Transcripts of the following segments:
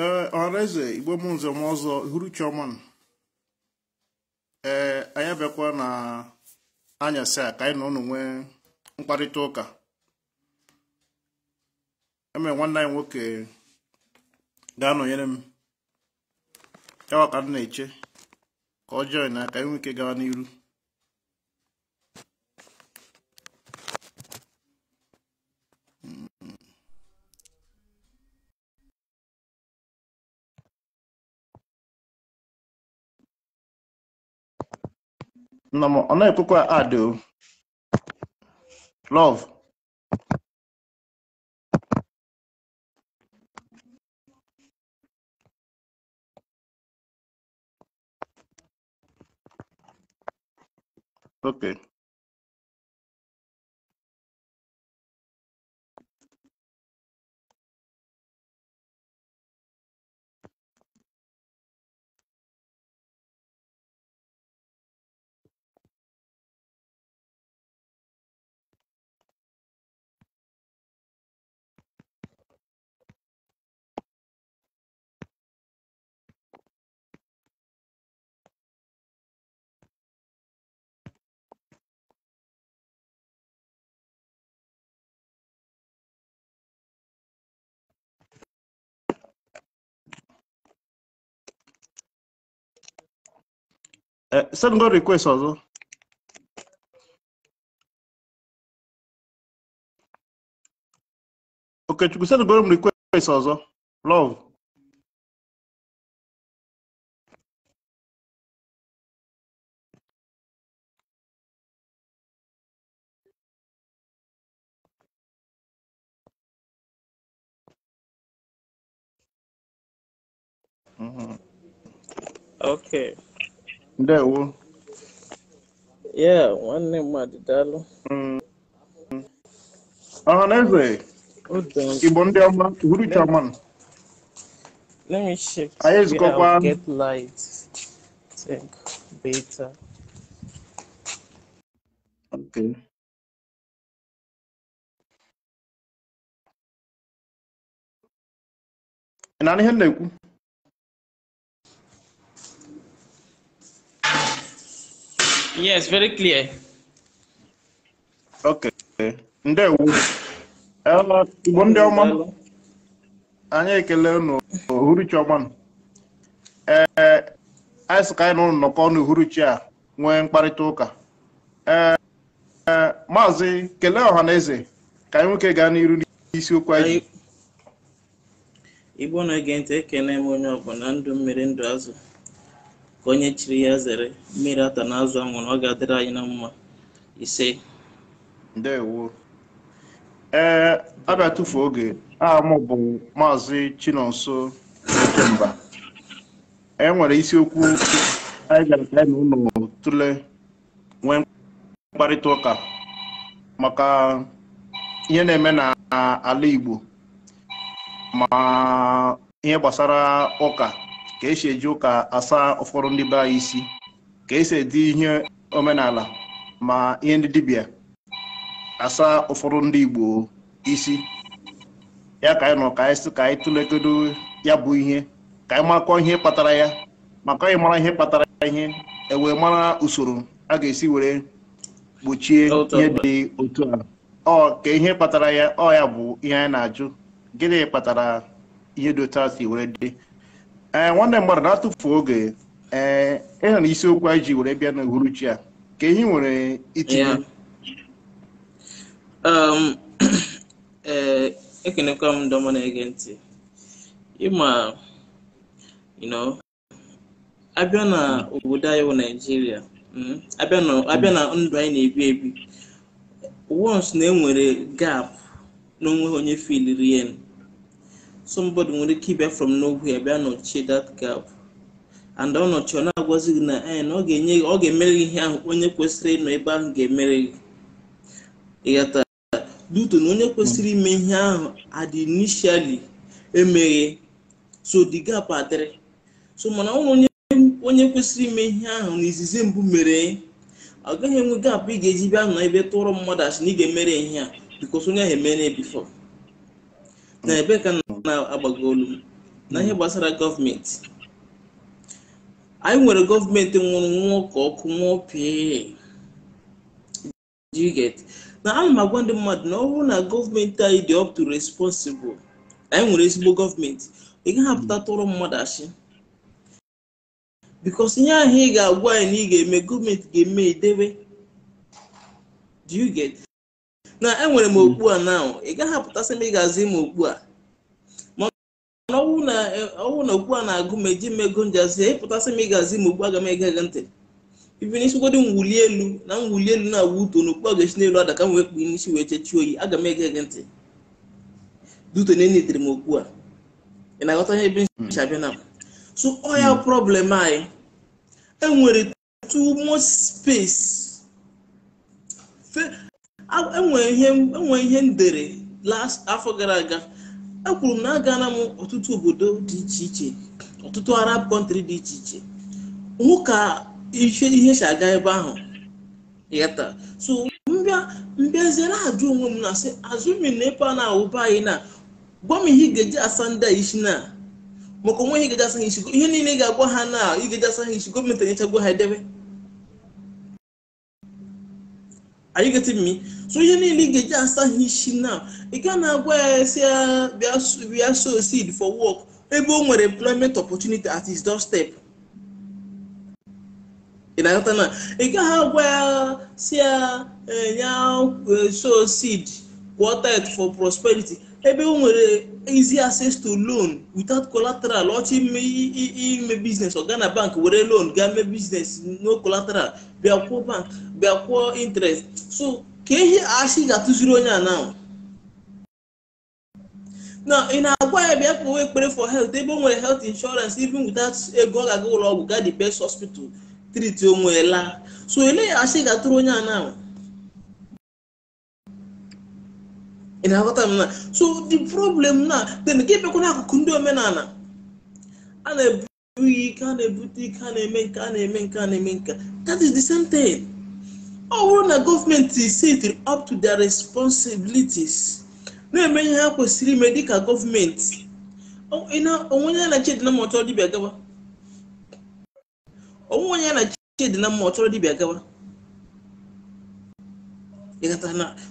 ee ọraeze igbo m nze ọzọ hụrụ chioma ee anyị abịakwa na anyasị a ka anyị na ụnụ nwee mkparịta ụka eme nwanne anyị nwoke ga-anọnyere m yawa ka m na-eche ka ọ jọị na ka anyị nwee ike gawa n'iru Namo ọ na-ekwekwa adị o love okay Eh, send God request also. Okay, you send God request also. Love. Mm -hmm. Okay. Ndewo. Yeah, nwanne mmadụ I Ọhaneze, Igbo ndị ọma, Uhuru Chairman. Let me check. go ezukọkwa. Get light. Think beta. Okay. Ị na-anụ Yes, very clear. Okay. Ndewo. Igbo ndị ọma anyị ekele unu uhuruchi ọma ee anyị sị ka anyị na ụlọ nnọkọ n'uhuruchi a nwee mkparịta ụka ee e, maazị kelee ọha na eze ka anyị nwoke gaa n'iru n'isiokwu anyị Igbo na-ege ntị ekele m onye ọbụla ndụ mmiri ndụ azụ ka onye chiri ya zere mmiri ata na azụ anwụrụ ọ ga-adịrị anyị na mma ise ndewo ee abịa tụfu oge aha m bụ maazị chinonso ekemba e nwere isiokwu anyị bịara ka anyị na ụlọ tụle nwee mkparịta ụka maka ihe na-eme n'ala Igbo ma ihe gbasara ụka ka esi eji ụka asa ụfọdụ ndị be anyị isi ka esi edi ihe omenala ma ihe ndị dibịa asa ụfọdụ ndị Igbo isi ya ka anyị nọ ka anyị ka anyị ya bụ ihe ka anyị makọ ihe kpatara ya maka anyị mara ihe kpatara ihe ewee mara usoro a ga-esi were gbochie ihe dị otu a ọ ka ihe kpatara ya ọ ya bụ ihe anyị na-ajụ gịnị kpatara ihe dị otu a were dị ee eh, nwanne mmadụ na-atụfu oge ee eh, ịhụ na isiokwu anyị ji were bịa n'uhuruchi a ka ehi nwere itinye um, ee eh, ekenekwa m ndọma na-ege ntị ịma abịa na obodo anyị bụ naijiria hmm, abịa na ndụ anyị na-ebi ebi once na enwere gap na n'onwe onye filiri somebody nwere ike ịbịa from nowhere bịa nọchie that gap and ọ nọchi ọ na-agwazi gị na eh, ọ ga-enye ọ ga-emere ihe ahụ onye kwesịrị ịnọ ebe ahụ ga-emere gị ịghata duto na onye kwesịrị ime ihe ahụ adị emeghe so the gap adịrị so mana onye onye kwesịrị ime ihe ahụ na izizi mbụ mere ọ gaghị enwe gap ị ga-eji bịa nọ ebe tụrụ mmadụ asị na ị ga-emere ihe a because onye ahụ emere before na ebe ka na agbagolu mm. na ihe mm. gbasara gọọmenti anyị nwere gọọmenti nwụrụ nwa ka ọkụ nwụọ pịa na ana m agwa ndị mmadụ na ọ bụrụ na gọọmenti anyị dị up to responsible anyị nwere ezigbo gọọmenti ị gaghị apụta mm. tụrụ mmadụ achị bikos ihe ahụ ị ga-agwa anyị na ị ga-eme gọọmenti ga-eme edebe do you get na enwere m okpu a now ị gaghị apụtasị m ị ga-azi m okpu a ọbụ na okwu a na-agụ ma eji mmego njazi ịpụtasị e m ịgazi ma okwu aga m ege ege ntị ibi n'isigodo mwuli elu na mwuli elu na-awụ uto na okpu aga-esi n'elu ada ka m n'isi wee chechi oyi aga m ege ege ntị dute na enitere m okwu a ị na-aghọta ihe ebe nsi abịa na so ọ ya problem anyị enwere too much space enwere e ihe e ndere last afọ gara aga ekwuru m na agaala m ọtụtụ obodo dị iche iche ọtụtụ arab kọntrị dị iche iche hụ ka ihe si aga ebe ahụ yata so mbịa mbịaziere ajụ onwe m na-asị azụmi na ebe a na-awụba anyị na gwa m ihe ga-eji asa ndị a isi na maka onwe ihe ị eji asa ha isi ihe niile ga-agwa ha na ị ga asa ha isi gọọmenti na gwa ha edebe Are you getting me? So you niile to asa start hitching now. You can acquire uh, uh, we are sow seed for work. o nwere employment opportunity at his doorstep. Ị na-aghọta na ị gaghị agwa ya si ya nye seed quartet for prosperity ebe o nwere easy access to loan without collateral ọchị ime ime biznes ọ gaa na bank were loan gaa mee biznes no collateral bịa kwụọ bank bịa kwụọ interest so ka ihe achị ga-atụziri onye a na na ị na-agwa ya bịa kpọwa ekpere for health ebe o nwere health insurance even without ego ọ ga-aga ụlọ ọgwụ gaa the best hospital treat onwe la so ele ya achị ga-atụrụ onye a na ị na-aghọta m na so the problem na then gị bịakwana akụkụ ndị omenala a na-ebu ike a na-ebute ike a na-eme nke a na-eme nke a na-eme nke that is the same thing ọ bụrụ na gọọmenti sit up to their responsibilities na-eme ihe ha kwesịrị ime dịka gọọmenti onwe onye na chedina ma ọchọrọ dibịa gawa onwe onye na chedina ma ọchọrọ dibịa gawa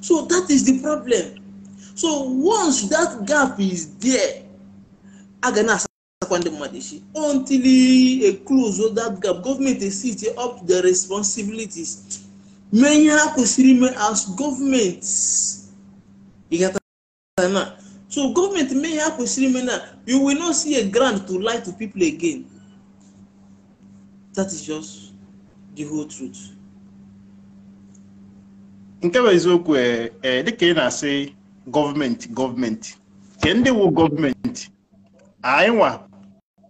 so that is the problem so once that gap is there a ga na-asakwa ndị mmadụ echi until e close that gap gọọmenti esite up the responsibilities mee ihe ha kwesịrị ime as gọọmenti e na so government mee ihe ha kwesịrị ime na you will not see a grant to lie to people again that is just the whole truth nke bụ eziokwu eh, eh, dịka ị na-asị gọọmenti gọọmenti ke ndị wu gọọmenti anyị nwa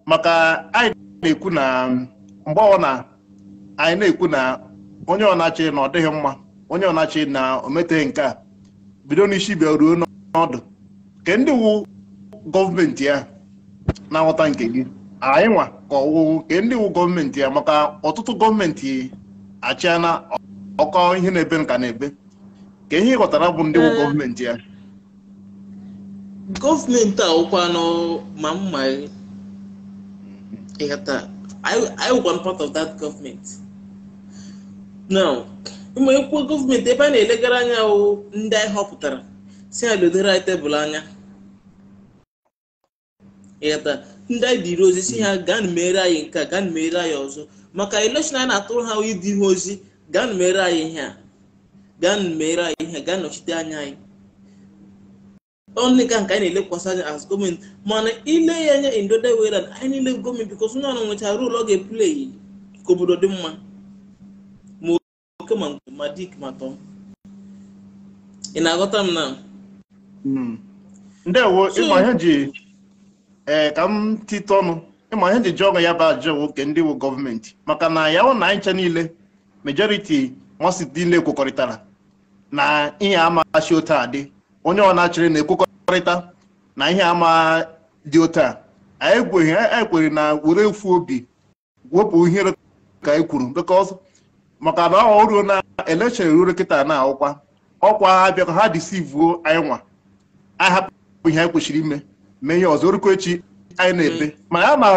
maka anyị na-ekwu na mgbe ọ na anyị na-ekwu na onye ọnachi na ọ dịghị mma onye ọnachi na o meteghị nke a bido n'isi bịa ruo n'ọdụ ke ndị wu gọọmenti ya na-aghọta nke gị anyị nwa ka ọwụwụ ke ndị wu gọọmenti ya maka ọtụtụ gọọmenti achịana ọkọ ihe na-ebe nka na-ebe ka ihe ị ghọtara bụ ndị wu gọọmenti ya gọọmenti awụkwanụ ma mma ịghata I want part of that government now ụmụ ekwuo gọọmenti ebe a na-elegara anya ndị anyị họpụtara si ha lodoro anyị tebụl anya ịghata ndị anyị dịrị ozi si ha gaa na mere anyị nke a gaa mere anyị ọzọ maka elekshọn anyị na-atụrụ ha ịdị ihe ozi gaa na mere anyị ihe a gaa mere anyị ihe gaa nọchite anya anyị only ka nke anyị na-elekwasị anya as gọọmenti mana ile ya anya indode wera anyị niile gọọmenti bikos onye ọrụ nwechara rol ọ ga-epuleyi ka obodo dị mma ma oke ma nke ma dik ma tọ ị na-aghọta m na hmm. ndewo ịma ihe ji ee eh, ka m tite ọnụ ịma ihe ji ji ọnụ ya bụ ajọ nwoke ndị wu gọọmenti maka na ya hụ na anyị ncha niile majoriti nwasị niile kwekọrịtara na ihe amachi otu adị onye ọ na-achịrị na-ekwekọrịta na ihe ama dị otu a anyị ekweghị anyị na were efu obi wepụ ihere ka anyị kwuru because maka na ọ ruo na election ruo kịta na ọkwa ọkwa ha bịa ka ha disivuo anyị nwa anyị hapụ ihe anyị kwesịrị ime mee ihe ọzọ orukọ echi anyị na-ebe mana ya ma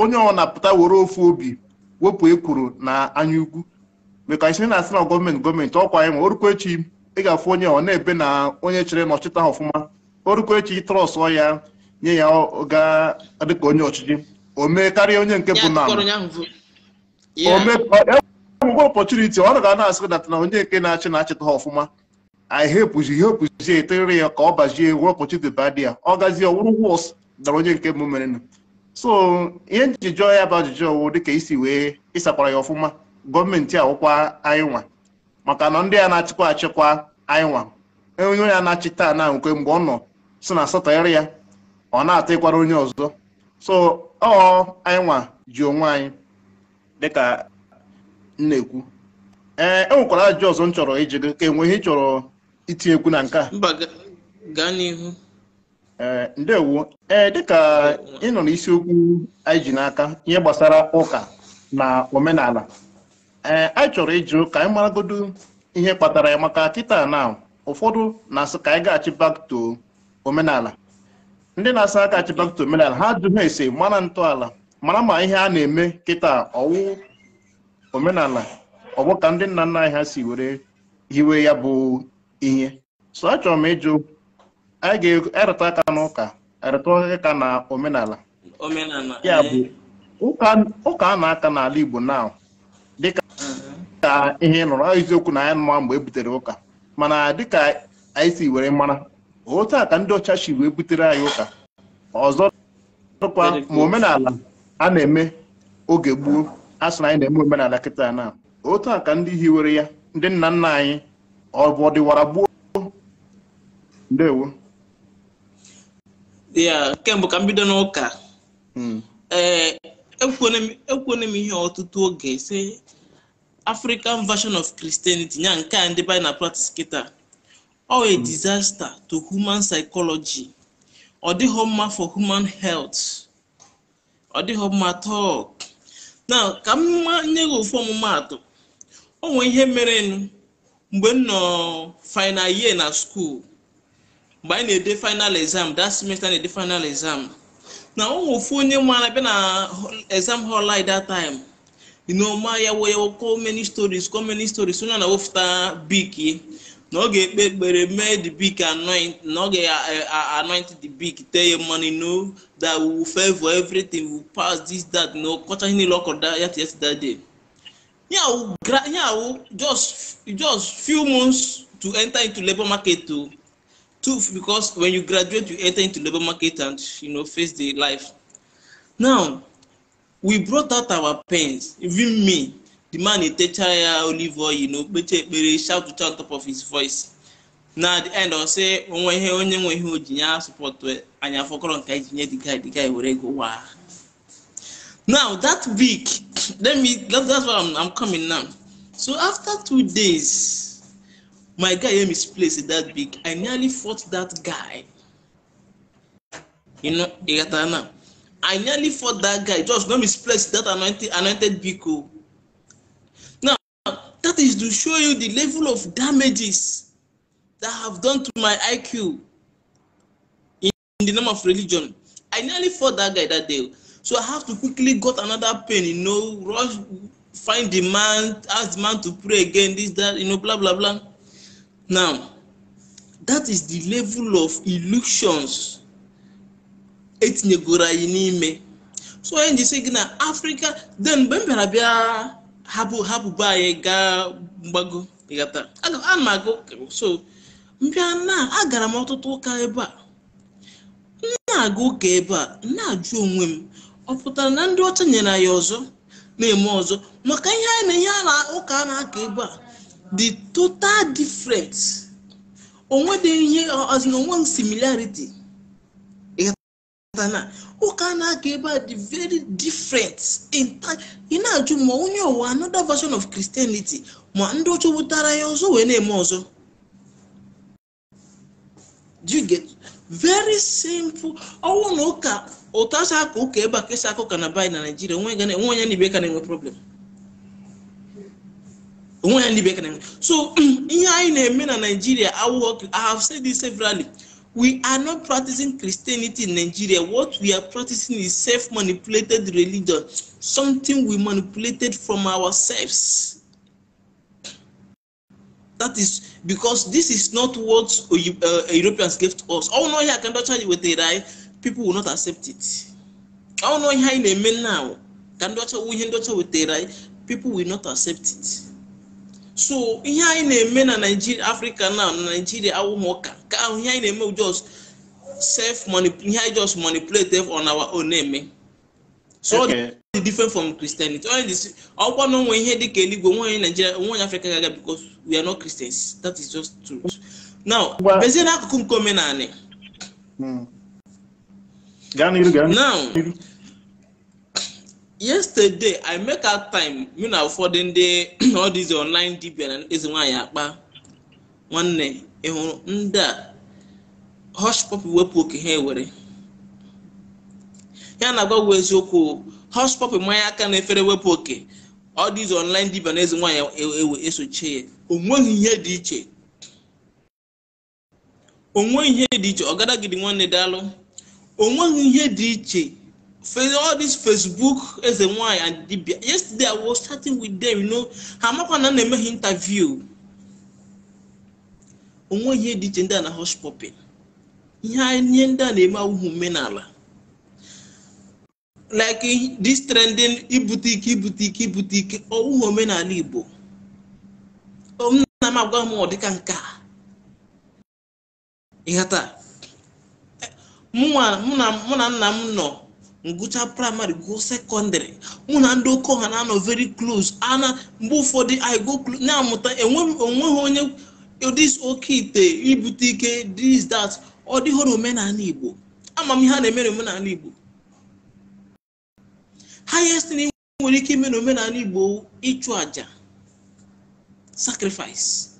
onye ọ na-apụta were ofu obi wepụ ekwuru na anya ugwu. maka anyị na-asị na gọọmenti gọọmenti ọkwa anyị nwa orukọ echi ị ga-afụ onye ọ na-ebe na onye chere nọchịta ha ọfụma o rukwa echi trọsụ ya nye ya gadịka onye ọchịchị o mee karịa onye nke bụ na enwegwe ọpọchuniti ọ ga na-asị data na onye nke na-achị na-achịta ha ọfụma anyị hepụzi ihe opụzi etere ya ka ọ bazie wee ọpọchuniti ba dị ya ọ gazie ọwụrụ wọs dara onye nke bụ merenụ so ihe njijọ ya bụ ajụjụ dị dịka isi wee ịsakwara ya ọfụma gọọmenti awụkwa anyị nwa maka na ndị a na-achịkwa achịkwa anyịnwa e, onye ya na-achịta na nkwe mgbe ọ nọ si na satọrọ ya ọ na-ata ịkwara onye ọzọ so ọ anyịnwa ji onwe anyị dịka na-ekwu ee nwekwara ajụjụ ọzọ m chọrọ iji gị ka enweghị ihe itinye chọrọ na nke a gaa n'ihu ee ndewo ee dịka ị nọ n'isiokwu anyị ji n'aka ihe gbasara ụka na omenala ee anyị chọrọ ịjụ ka anyị maragodo ihe kpatara ya maka kịta na ụfọdụ na-asị ka anyị gaghachi back to omenala ndị na-asị aka achị back to omenala ha jụ ha ese mara ntọala mara ma ihe a na-eme kịta ọwụ omenala ọ bụ ka ndị nna nna anyị ha si were hiwe ya bụ ihe so chọrọ m ịjụ anyị ga-erịta e aka n'ụka erịta aka na omenala ya bụ ụka a na-aka n'ala Igbo na. ka ihe nọrọ eziokwu na ya nụwa mgbe e butere ụka mana dịka anyị si were mara otu a ka ndị ọcha si wee butere anyị ụka ọzọ dịkwa ma omenala a na-eme oge gboo a sị na anyị na-eme omenala kịta na otu a ka ndị hiwere ya ndị nna nna anyị ọ bụ ọdịwara gboo ndewo ya kemgbe ka m bido n'ụka hmm. ee m ihe ọtụtụ oge sị. african version of christianity ya nke a ndị bi na practice kịta a disaster to human psychology ọ dịghị mma for human health ọ dịghị mma talk na ka m nye gị ofu ọmụmatụ o nwee ihe mere mgbe nọ final year na school mgbe anyị na-ede final exam that semester na-ede final exam na o nwee ofu onye ala bịa na exam hall anyị that time you know ma yawo yawo call many stories call many stories So na-awụfụta bik na ọ ga-ekpe ekpere mee the bik anoint na ọ ga-anoint the big. Tell ya mmanụ no that we will favor everything we will pass this that No, ọkọcha ihe niile ọ kọrọ ya yesterday day nyawu just just few months to enter into labour market oh. to, too because when you graduate you enter into labour market and you know face the life now we brought out our pains, even me the man dey techara ya olive oil you know kpecha ekpere shout to on top of his voice na at the end ọ sị onwe ihe onye nwe ihe o ji nye asụpọtụ anyị afọkọrọ nke anyị ji nye the guy the guy were go waa now that week let me that, that's why I'm, I'm coming now so after two days my guy hear me that big I nearly fought that guy you know ị gatara now. I nearly fought that guy. Just don't misplace that anointed, anointed Biko. Now, that is to show you the level of damages that have done to my IQ in, in the name of religion. I nearly fought that guy that day. So I have to quickly got another pain, you know, rush, find the man, ask the man to pray again, this, that, you know, blah, blah, blah. Now, that is the level of illusions etinyegoro anyị n'ime so onye njisi gị na afrịka den mgbe m bịara bịa hapụ hapụ be anyị gaa mgbago ịghọtara a m agụ so mbịa na agara m ọtụtụ ụka ebe a na-aga ụka ebe a na-ajụ onwe m ọ pụtara na ndị ọcha nyere anyị ọzọ na-eme ọzọ maka ihe anyị na ihe ala ụka a na-aka ebe a the total difference onwe dị ihe ọzọ similariti. onwe similarity ụka na-aga ebe a dị very different ị na-ajụ ma onye ụwa another version of Christianity ma ndị ọcha wutara ya ọzọ wee na-eme ọzọ do you get very simple ọnwụ na ụka aka ụka ebe a kesa aka na bai na Naịjirịa onwe onye na problem ya ndị na-enwe so ihe anyị na-eme na Naịjirịa awụghọ I have we are not practicing Christianity in Nigeria. What we are practicing is self manipulated religion, something we manipulated from ourselves. That is because this is not what uh, Europeans gave to us. Oh no, here I can touch you with the right. People will not accept it. Oh no, here in a man now. Can touch with the right. People will not accept it. So, here in a man, Nigeria, Africa now, Nigeria, I will mock. nke ahụ ihe anyị just self money. anyị just manipulate on our own name. Eh? so okay. dị different from Christianity this. ọkwa na onwe ihe dịka eluigwe one in Nigeria one in Africa because we are not Christians that is just true now bezie n'akụkụ nke omenanị now yesterday i make out time me na ụfọdụ Day all these online dibia Is my nwaanyị one nwanne ị ndị a hospop wepụ oke ha ewere ya na-agwagwa eziokwu hospop mmanya aka na efere wepụ oke ọ dị izu online dibia na eze nwaanyị ewe e, e, esochie ya onweghị ihe dị iche onweghị ihe dị iche ọgadagidi nwanne dalụ onweghị ihe dị iche all this facebook eze nwaanyị and dibia yesterday i was starting with them you know ha amakwa na na-emeghị interview onweghị ihe dị iche ndị a na hospopin ihe ndị a na-eme awụghị omenala like this trending ibute ike ibute ike ibute ike omenala igbo nna m agwa m ọ dịka nke a ịghata mụ na nna m nọ ngụcha praịmarị gụọ sekọndịrị mụ na ndị oke ọha na-anọ very close ana mgbe ụfọdụ anyị amụta enweghị onye dis oke ite ibute ike dis dat ọ dịghọrọ omenala igbo ama m ihe a na-eme n'omenala igbo highest na nwere ike ime n'omenala igbo ịchụ aja sacrifice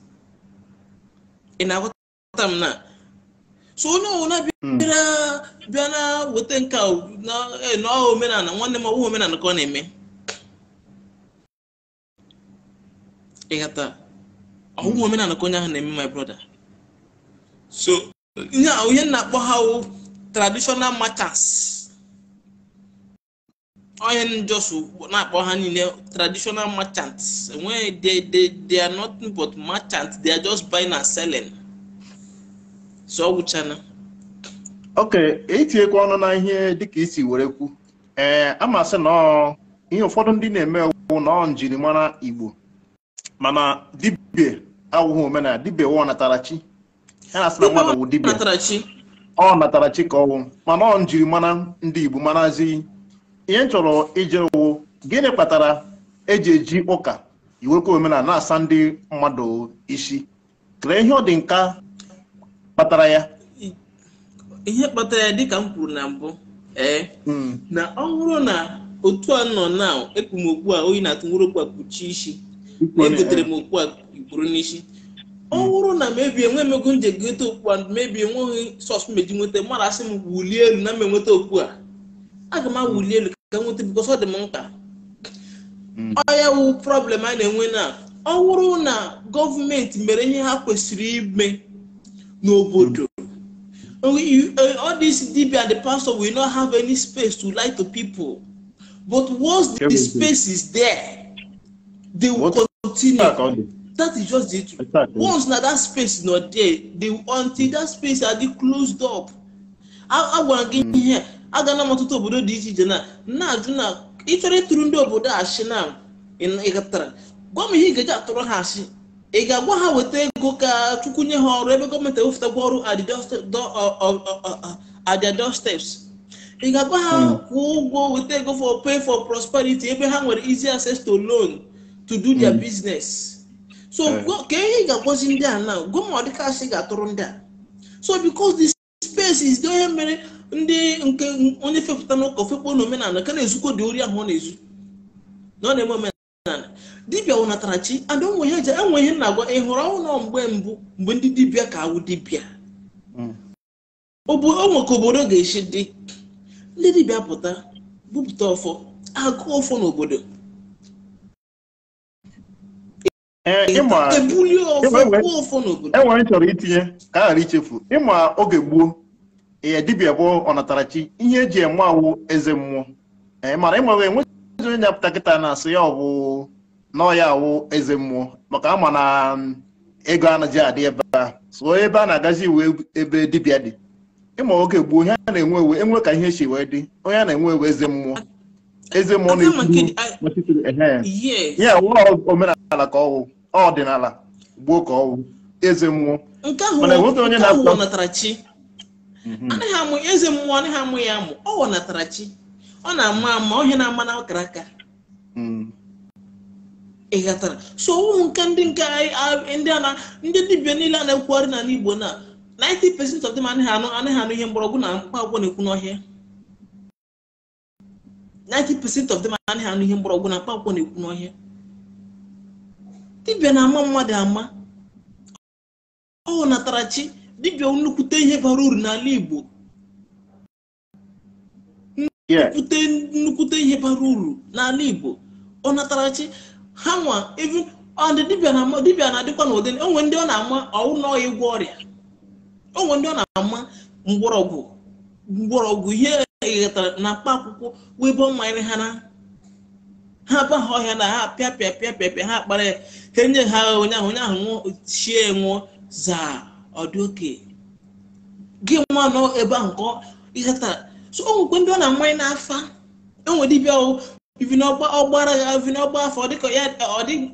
ị na m na so onye ọbụla bịa na weta nke na e, omenala nwanne m ọwụ omenala ka ọ na-eme ịghata ọgwụgwọ omenala ka onye ahụ na-eme my brother so onye na-akpọ ha traditional matters onye na-akpọ ha niile traditional merchants enweghị they, they, are but merchants they are just buying and selling so ọ ok etinyekwa ọnụ na ihe dịka isi were kwu ee a na ihe ụfọdụ ndị na-eme ewu igbo awụghị omenala dibe ụwa natarachi ya na-asị na mmadụ wụ dibe. ọ natara chi ka ọwụ mana ọ njiri mana ndị igbo marazi ihe m chọrọ ije wụ gịnị kpatara eji eji ụka iwekwa omenala na-asa ndị mmadụ isi kere ihe ọ dị nka kpatara ya ihe kpatara ya dịka m kwuru na mbụ ee hmm. na ọ bụrụ na otu a nọ na ekpumokwu a oyi na-atụ nwere okwu a kpuchie isi na egotere m eh. okwu a buru n'isi ọ bụrụ na mebie enwe emego m ji egote okpu a mebi enweghị sọs meji nweta mmadụ asị m wulie elu na m enweta okpu a aga m awuli elu ka nweta bikos ọ dị m mkpa hmm. ọya wu prọblem a na-enwe na ọ bụrụ na gọọmenti mere ihe ha kwesịrị ime n'obodo hmm. eh, all these dibia the pastor will not have any space to lie to people but once the space is there they will continue that is just the exactly. once na that space nọ there the until that space adị closed up agwara gị ihe agana m ọtụtụ obodo dị iche iche na na-ajụ na ịchọrọ ịtụrụ ndị obodo asị na ịgatara gwa m ihe ị ga atụrụ ha asị ị ga-agwa ha weta ego ka chukwu nye ha ọrụ ebe gọọmenti ewepụtakwa ọrụ at their doorsteps ị ga-agwa ha kwụọ ụgwọ weta ego for pay for prosperity ebe ha nwere easy access to loan to do their hmm. business so ka ihe ị ga-agwazi ndị a na gụọ ma ọ ga-atụrụ ndị a so because the space is onye mere ndị nke onye fepụta n'ụka ofekpo na omenala ka na-ezukọ dị ori ahụ ọ na-ezu na ọ na-eme omenala dibịa wụnatara chi ada onwe ihe eji enwe ihe na-agwa ị hụrụ ọnwụ mgbe mbụ mgbe ndị dibịa ka awụ dibịa onwe hmm. ka obodo ga-esi dị ndị dibịa pụta bupụta ọfọ agụ ọfọ n'obodo Eh, enwere m chọrọ itinye ka a ghara ichefu ịma oge gboo ya dibịa bụ ọnatarachi ihe eji eme awụ eze mmụọ eh, mara ịmawe enweghị onye nyapụta kịta na-asị ya ọbụ bụ na ọya awụ eze mmụọ maka ama na mm, ego anaghị adị ebe a so ebe a na-agazi iwe ebe dibia dị ịma oge gboo ihe a na-enwe ewe enwe ka ihe echi wee dị onye a na-enwe ewe eze mmụọ eze mmụọ na-ekwu ya omenala ka ọwụ ọdịnala gbuo ka ọwụ eze mmụọ Nke ahụ. E mhm. anaghị amụ eze mmụọ anaghị amụ ya amụ ọ wọnatara chi ọ na-ama ama ọhịa na-ama na ọkara aka mhm. ị ghọtara so ụmụ nke ndị nke ndị a ndị dibịa niile a na-ekwugharị n'ala n'Igbo na 90% of them anaghị anụ anaghị anụ ihe mgbọrọgwụ na mkpa agwọ na-ekwu n'ọhịa 90% of them anaghị anụ ihe mgbọrọgwụ na mkpa akwụkwọ na-ekwu n'ọhịa Dibia na-ama mmadụ ama ọ natarachi dibia nnukwute ihe bara uru n'ala Igbo nnukwute nnukwute ihe bara uru n'ala Igbo ọ natarachi chi ha nwa ọdị dibịa na-adịkwa n'ụdị onwe ndị ọ na-ama ọwụ na ọya ọrịa onwe ndị ọ na-ama mgbọrọgwụ mgbọrọgwụ ihe eghọtara na mkpa akwụkwọ wibo mmanya ha na ha abaghị ọhịa na ha pịa pịa ha kpara ya ka enye ha agha onye ahụ onye ahụ nwụọ chie nwụọ zaa ọdị oke gị nwa nọ ebe ahụ ka ihe tara so o ndị ọ na-amanye n'afa enwe dibịa ivi n'ọgbara ya ivi n'ọgba afọ dịka ya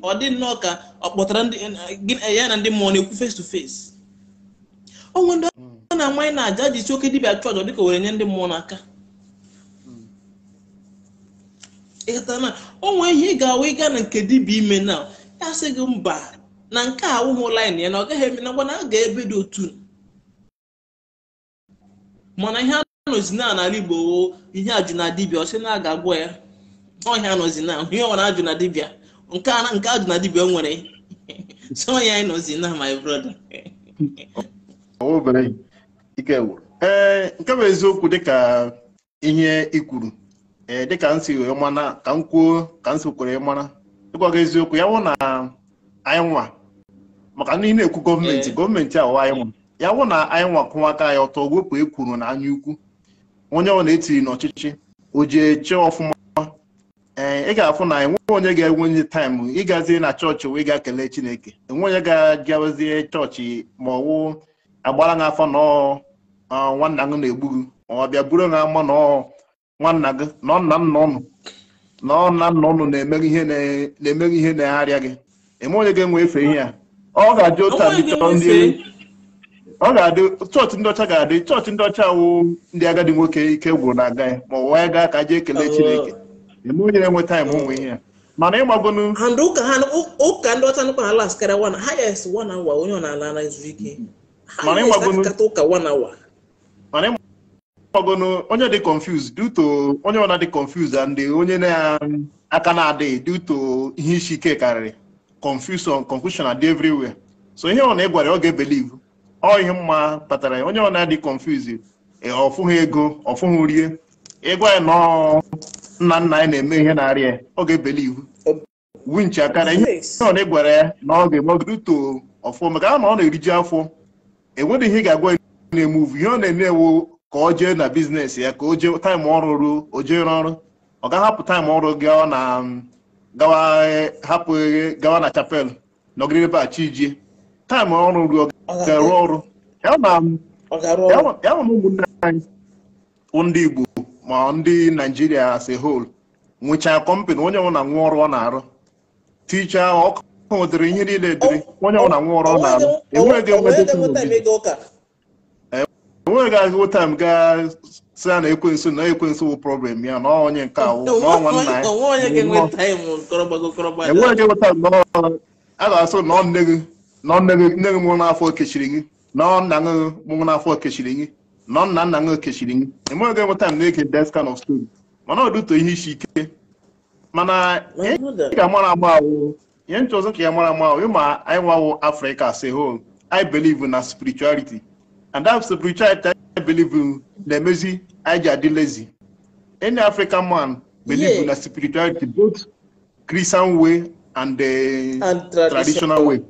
ọdị nnọọ ka ọ kpọtara ya na ndị mmụọ na-ekwu face to face onwe ndị ọ hmm. na-amanye na aja ji chi oke dibịa chọọchọ dịka were nye ndị mmụọ n'aka ịghọtana o nwee ihe ị ga-awa ịga na nke dibịa ime na ya sị gị mba na nke a wụhụ laịn ya na ọ gaghị eme na ngwa na a ga-ebe dị otu mana ihe anọzi na n'ala igbo ihe ajụ na dibia ọ sị na aga agwọ ya ọhịa anọzi na ihe ọwara ajụ na dibịa nke nke ajụ na dibịa nwere so ya anọzi na my brother ee nke bụ eziokwu dịka ihe ikwuru ee eh, dịka nsi wee mana ka m kwuo ka nsi kwere mara ịgwa gị eziokwu ya wụ na anyị nwa maka na ị na-ekwu gọọmenti eh. gọọmenti a anyị nwa ya wụ na anyị nwa kụwa aka ya ọtọ wepụ ekwuru na anya ukwu onye ọ na-etiri n'ọchịchị o ji eche ọfụma ee eh, ị ga-afụ na enweghị onye ga enwe onye taịm ịgazie na chọọchị wee ga kelee chineke enwe onye ga-agazie chọọchị ma ọwụ agbara gị afọ na nwanna gị na-egbu gị ọ bịa buru gị ama na ọ nwanna gị na ọnna nna ụnụ na ọnna nna ụnụ na-emere ihe na-emere egharịa gị eme onye ga-enwe efe ihe a ọ ga-adị otu a ọ ga-adị chọọchị ndị ọcha ga-adị chọọchị ndị ọcha wụ ndị agadi nwoke ike gwụrụ na aga ya ma ọ wee gaa ka jee ekele oh. Chineke eme onye na-enwe taịm onwe ihe a. mana ịgbagonu ụka ndị ọcha nụkwa ala skara wana ha ya esi wana awa onye ọ na-ala na izu ike ha ya esi ụka wana awa nọgonu onye dị confused due to onye ọna dị confused and onye na-aka um, na-adịghị due to ihe isi ike karịrị confusion confusion adị everywhere so ihe ọ na ịgwara ọ ga-ebelive ọ ihe mma kpatara ya onye ọna dị confused eh, ọfụghị ego ọfụghị rie ịgwa ya nọ nna nna anyị na-eme ihe na-arịa ọ ga-ebelive winch akara ihe ọ na ịgwara ya na ọ ga-eme oge ọfụ maka na ọ na eriji afọ enweghị ihe ị ga-agwa na-emuvu ihe ọ na-eme ewu ka o jee na biznes ya ka o jee taịm ọrụ ruo o jee ọrụ ọ ga-ahapụ taịm ọrụ gị ọ na gawa hapụ gawa na chapel nọgide ebe a chi jie taịm ọrụ ruo ga-arụ ọrụ ya na ụmụnne anyị ndị Igbo ma ndị Naijiria as a whole nwechaa kọmpanị onye nwụ na nwa ọrụ ọ na-arụ ticha ọkụ nwetara ihe niile dịrị onye nwụ na nwa ọrụ ọ na-arụ enweghị enweghị onwe gaghị gaa sị a na ekwensu na ekwensu wụ problem ya na onye nke awụ a ga-asụ na nne gị na nne gị nne gị mụrụ n'afọ kechiri gị na nna gị mụrụ n'afọ kechiri gị na nna nna gị kechiri gị nweta m na-ege of mana isi ike mana ihe nchọzọ ka ya mara ama ahụ ịma anyị afrịka i na And that spirituality I believe in the emezi anyị ji lazy. Any African man believe yeah. in na spirituality both Christian way and the uh, and traditional, traditional way.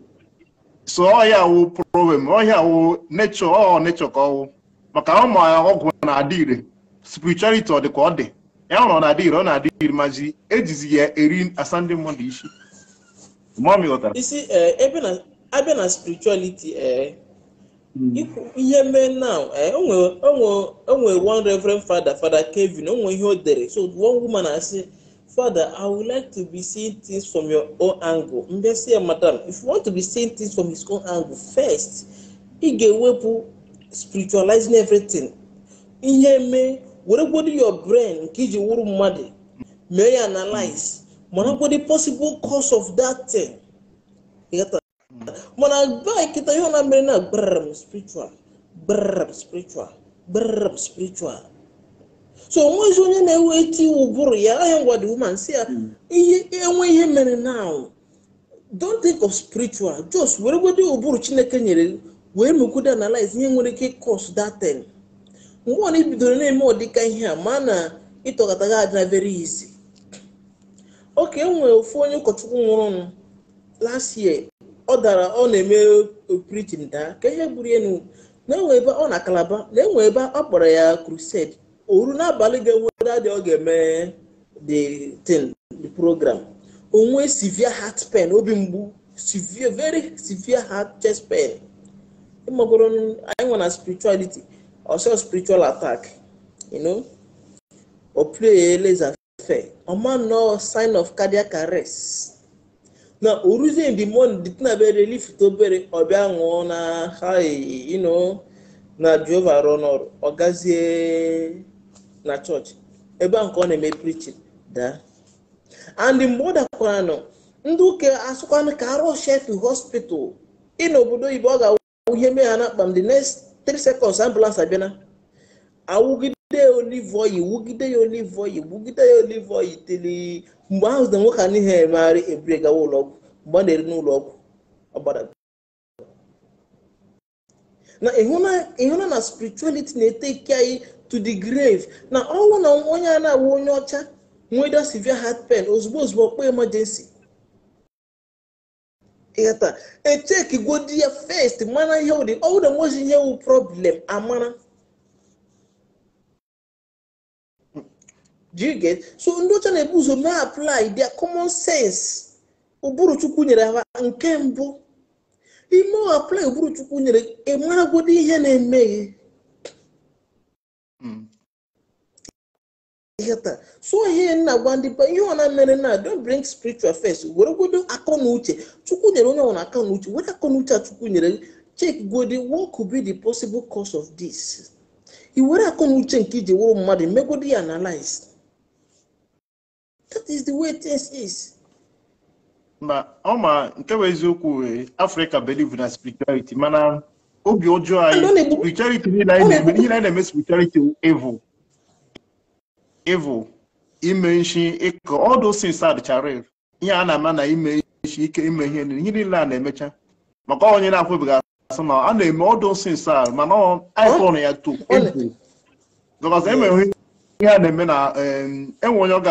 So all ọhịa awụ problem all ọhịa awụ nature all oh, nature ka oh. ọwụ maka ụmụ oh, ọgwụ na-adị ire spirituality ọ dị ka ọ dị ya hụrụ ọ na-adị ire ọ na-adị Erin maji ejizi ya eri asa ndị mmadụ isi. Mụọ m ghọtara. Isi ebe spirituality ee. Eh, Hmm. ihe mee now eh, onwe one reverend father father kevin I'm ihe o dere so one woman say, father i would like to be seeing things from your own angle mbe si saying, madam if you want to be seeing things from his own angle first ị ga-ewepụ spiritualizing everything ihe mee weregodo your brain nke iji wụrụ mmadụ mee ya analyze the possible cause of that thing kịta mana gaa kịta ihe na mere na brm spiritual brm spiritual brm spiritual so onweghịzi onye na-ewe eti ụbụrụ ya ahịa ngwa dị woman si ya hmm. ihe enwe ihe mere now don't think of spiritual just weregodo ụbụrụ chineke nyere wee mekwudo analyze ihe nwere ike ịkọs datin mgbe ọ na-ebidoro na-eme ọdịka ihe a ma na ịtọgataga aja very easy oke enwere ofu onye ụkọchukwu nwụrụ last year ọ dara ọ na-eme preaching daa ka ihe gburu elu na enwe ebe ọ na kalaba na enwe ebe ọ kpọrọ ya crusade oru n'abalị ga-enwere adị ọ ga-eme dị thing program onwe severe heart spen obi mgbu severe very severe heart chest spen ịmagoro anyị nwe na spirituality ọsọ spiritual attack you know ọma nọ sign of cardiac arrest na oruzie in the morning dị bere obere ọbịa ṅụọ na ha ino na jehova rụọ n'ọrụ gazie na chọọchị ebe a nke ọ na-eme prichin daa and mgbe ọ dakwara nọ ndị ụka asụkwanụ ka arụ chef hospital ị obodo oyibo ọ ga-awụ ihe mee ha na akpa the next 3 seconds ambulance abịana awụgide ya olive oil wugide ya olive oil wugide ya olive oil tili mgbe ahụ zide nwoke a emegharị ebure gawa ụlọọgwụ mgbe ọ na-eri n'ụlọ ọgwụ na ịhụna na spirituality na-eteki anyị to the grave na ọnwụ na onye a na-awụ onye ọcha nweda severe heart pain ozugbo ozugbo ọkpọ emergency ịghata echekigodi ya fest mana ihe ụdị na nweghị ihe wụ problem amara do you get so ndị ọcha na-ebu ụzọ na-apply their common sense ụbụrụ chukwu nyere ha nke mbụ ime ọ apply ụbụrụ chukwu nyere ịmaragodi e ihe na-eme ihe hmm. taa so ihe na-agwa ndị ba ihe ọ na-emere na don't bring spiritual first were godo akọ na uche chukwu nyere onye ọbụla akọ na uche were akọ na uche a chukwu nyere chek godi what could be the possible cause of this i were akọ na uche nke iji wụrụ mmadụ megodi ya analyze that is the way this is. ma ọ ma nke bụ eziokwu e, afrịka believe na spirituality mana obi ọjọọ anyị spirituality niile anyị na-eme niile anyị na-eme spirituality evil evil ime nshi ịkọ all those things adịchara ihe a na-ama na ime nshi ike ime ihe ihe niile a na-emecha maka onye na-akwụbeghị akwụ asị na a na-eme ọdụ those a mana anyị kọrọ ya to evil because enwere ihe a na-eme na enwe onye ọ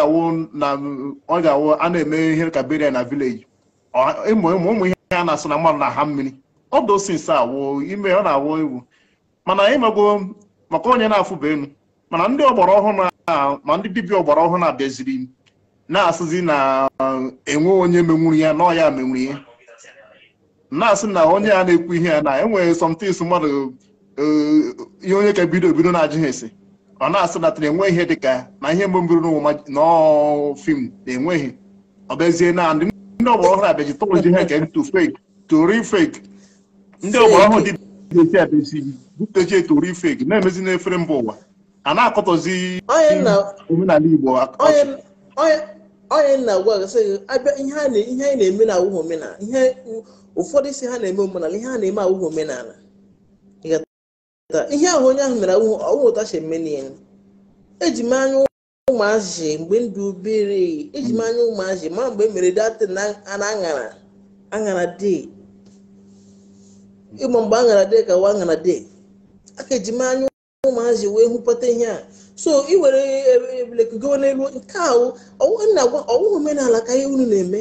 ga-awụ a na-eme ihe ka na vileji ụmụ ihe a na asụ na mmadụ na ha mmiri ọ dosinsa awụ ime ọ na-awụ egwu mana ịmego maka onye na-afụba elu mana ndị ọgbara ọhụrụ ma ndị dibịa ọgbara ọhụrụ na-abịaziri na-asịzi na enwe onye menwuru ya na ọya menwuru ya na-asị na onye a na-ekwu ihe ya na enwe sọmtins mmadụ eh, ihe onye ka bido ebido na-ajụghị ese ọ na-asịdatara enwe ihe dịka na ihe mbụ mbiri n'fim na-enweghị ọ bụezie na ndị ọgbara ọhụrụ abịaji tụrụzi ihe nke ntụ fake tori fake ndị ọgbara ọhụrụ dị esi abịazi butechie tori fake na-emezi n'efere mba ụwa a na-akọtọzi omenala Igbo onye na-agwa gasị abịa ihe anyị na-eme na awụghị omenala ihe ụfọdụ isi ha na-eme omenala ihe ha na-eme awụghị omenala ihe ahụ onye ahụ mere ụmụtashe menia eji m anya ụmụazị mgbe ndụ obere eji m anya ụmụazị ma mgbe e mere datin na aṅara aṅara dee ịma mgbe aṅara dee ka wa aṅara dee aka eji m anya ụmụazị wee hụpụta ihe a so iwere were e, e, n'elu nke ahụ a ọwụ omenala ka ihe unu na-eme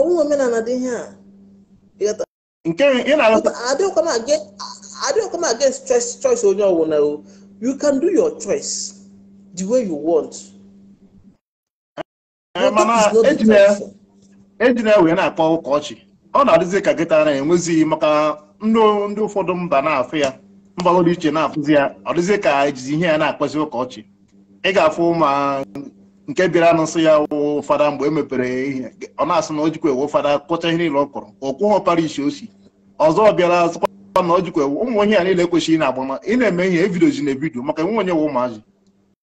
ọwụ omenala dị ihe a nke ị na adịghịkwa m against choice choice onye ọbụla o you can do your choice the way you want eh, mana ejina wee na akpọ ụka ọchị ọ na-adịzi ka gịta na-enwezighị maka ndị ụfọdụ mba na-afụ ya dị iche na-afụzi ya ọ dịzi ka ejizi ihe ya na akpọzi ụka ọchị ị ga-afụ ma nke bịara n'ụsọ ya wụ fada mgbe e mepere ihe ọ na-asị na o jikwa ewe fada kọcha ihe niile ọ kọrọ ọ kwụghọ parish o ọzọ bịara azụkwa na ọ jikwa ụmụ onye a niile ekwesịghị na-agbama ị na-eme ihe evidio ji na evidio maka nwe onye wụ ụmụazị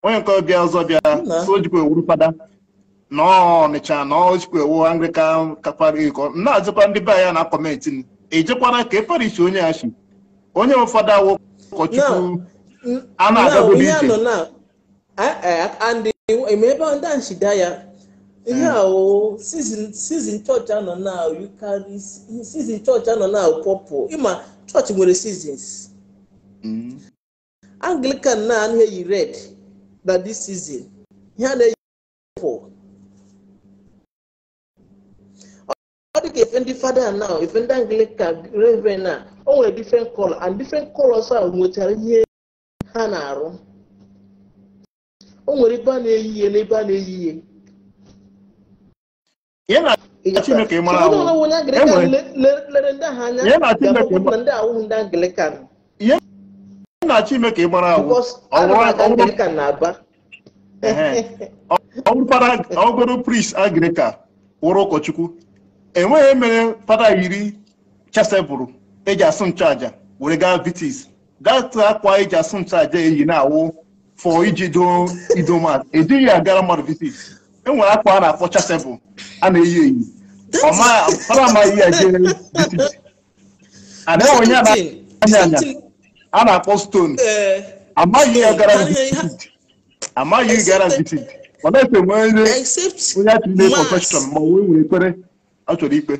onye nke ọbịa ọzọ bịara so jikwa ewu fada na ọnịcha na ọjikwa ewu anglikan kapariko na-azụkwa ndị be ya na kọmenti n e ejekwara ka eferichi onye ya chi onye ụfọdụ awụ ụkọchukwu a na-agabụ n'ije ebe ndị nchida ya ihe ahụ sizin chọọchị anọ na yukarị sizin chọọchị pọpụ ịma chọọchị nwere sizins anglican na anụ eyi red na dis season ihe a na-eyi pọpụ ọ dị ka efe ndị fada na efe ndị anglican reven a onwere nwere different and different colors a nwetara ihe ha na-arụ o nwere ebe a na-eyi ihe na ebe a na-eyi ihe ihe e e na Chineke mara ahụ mara ahụ ọ wụrụ ụkọchukwu enweghị mere fada yiri chesebụrụ eji asụ nchụaja were gaa vitis gatụ akwa eji asụ nchụaja eyi na-awụ fọ iji doo e idoma ejighị agara mmadụ vitis enwere akwa a na-afọcha tebụl a na-eyi eyi ọmara amaghị ya jere ada onye anya anya a na-akpọ stone eh, eh, amaghị ya gara amaghị gara vitin ọ na-efe nwere onye a tụrụ profeshọn ma onwe nwere ekpere ọ chọrọ ikpe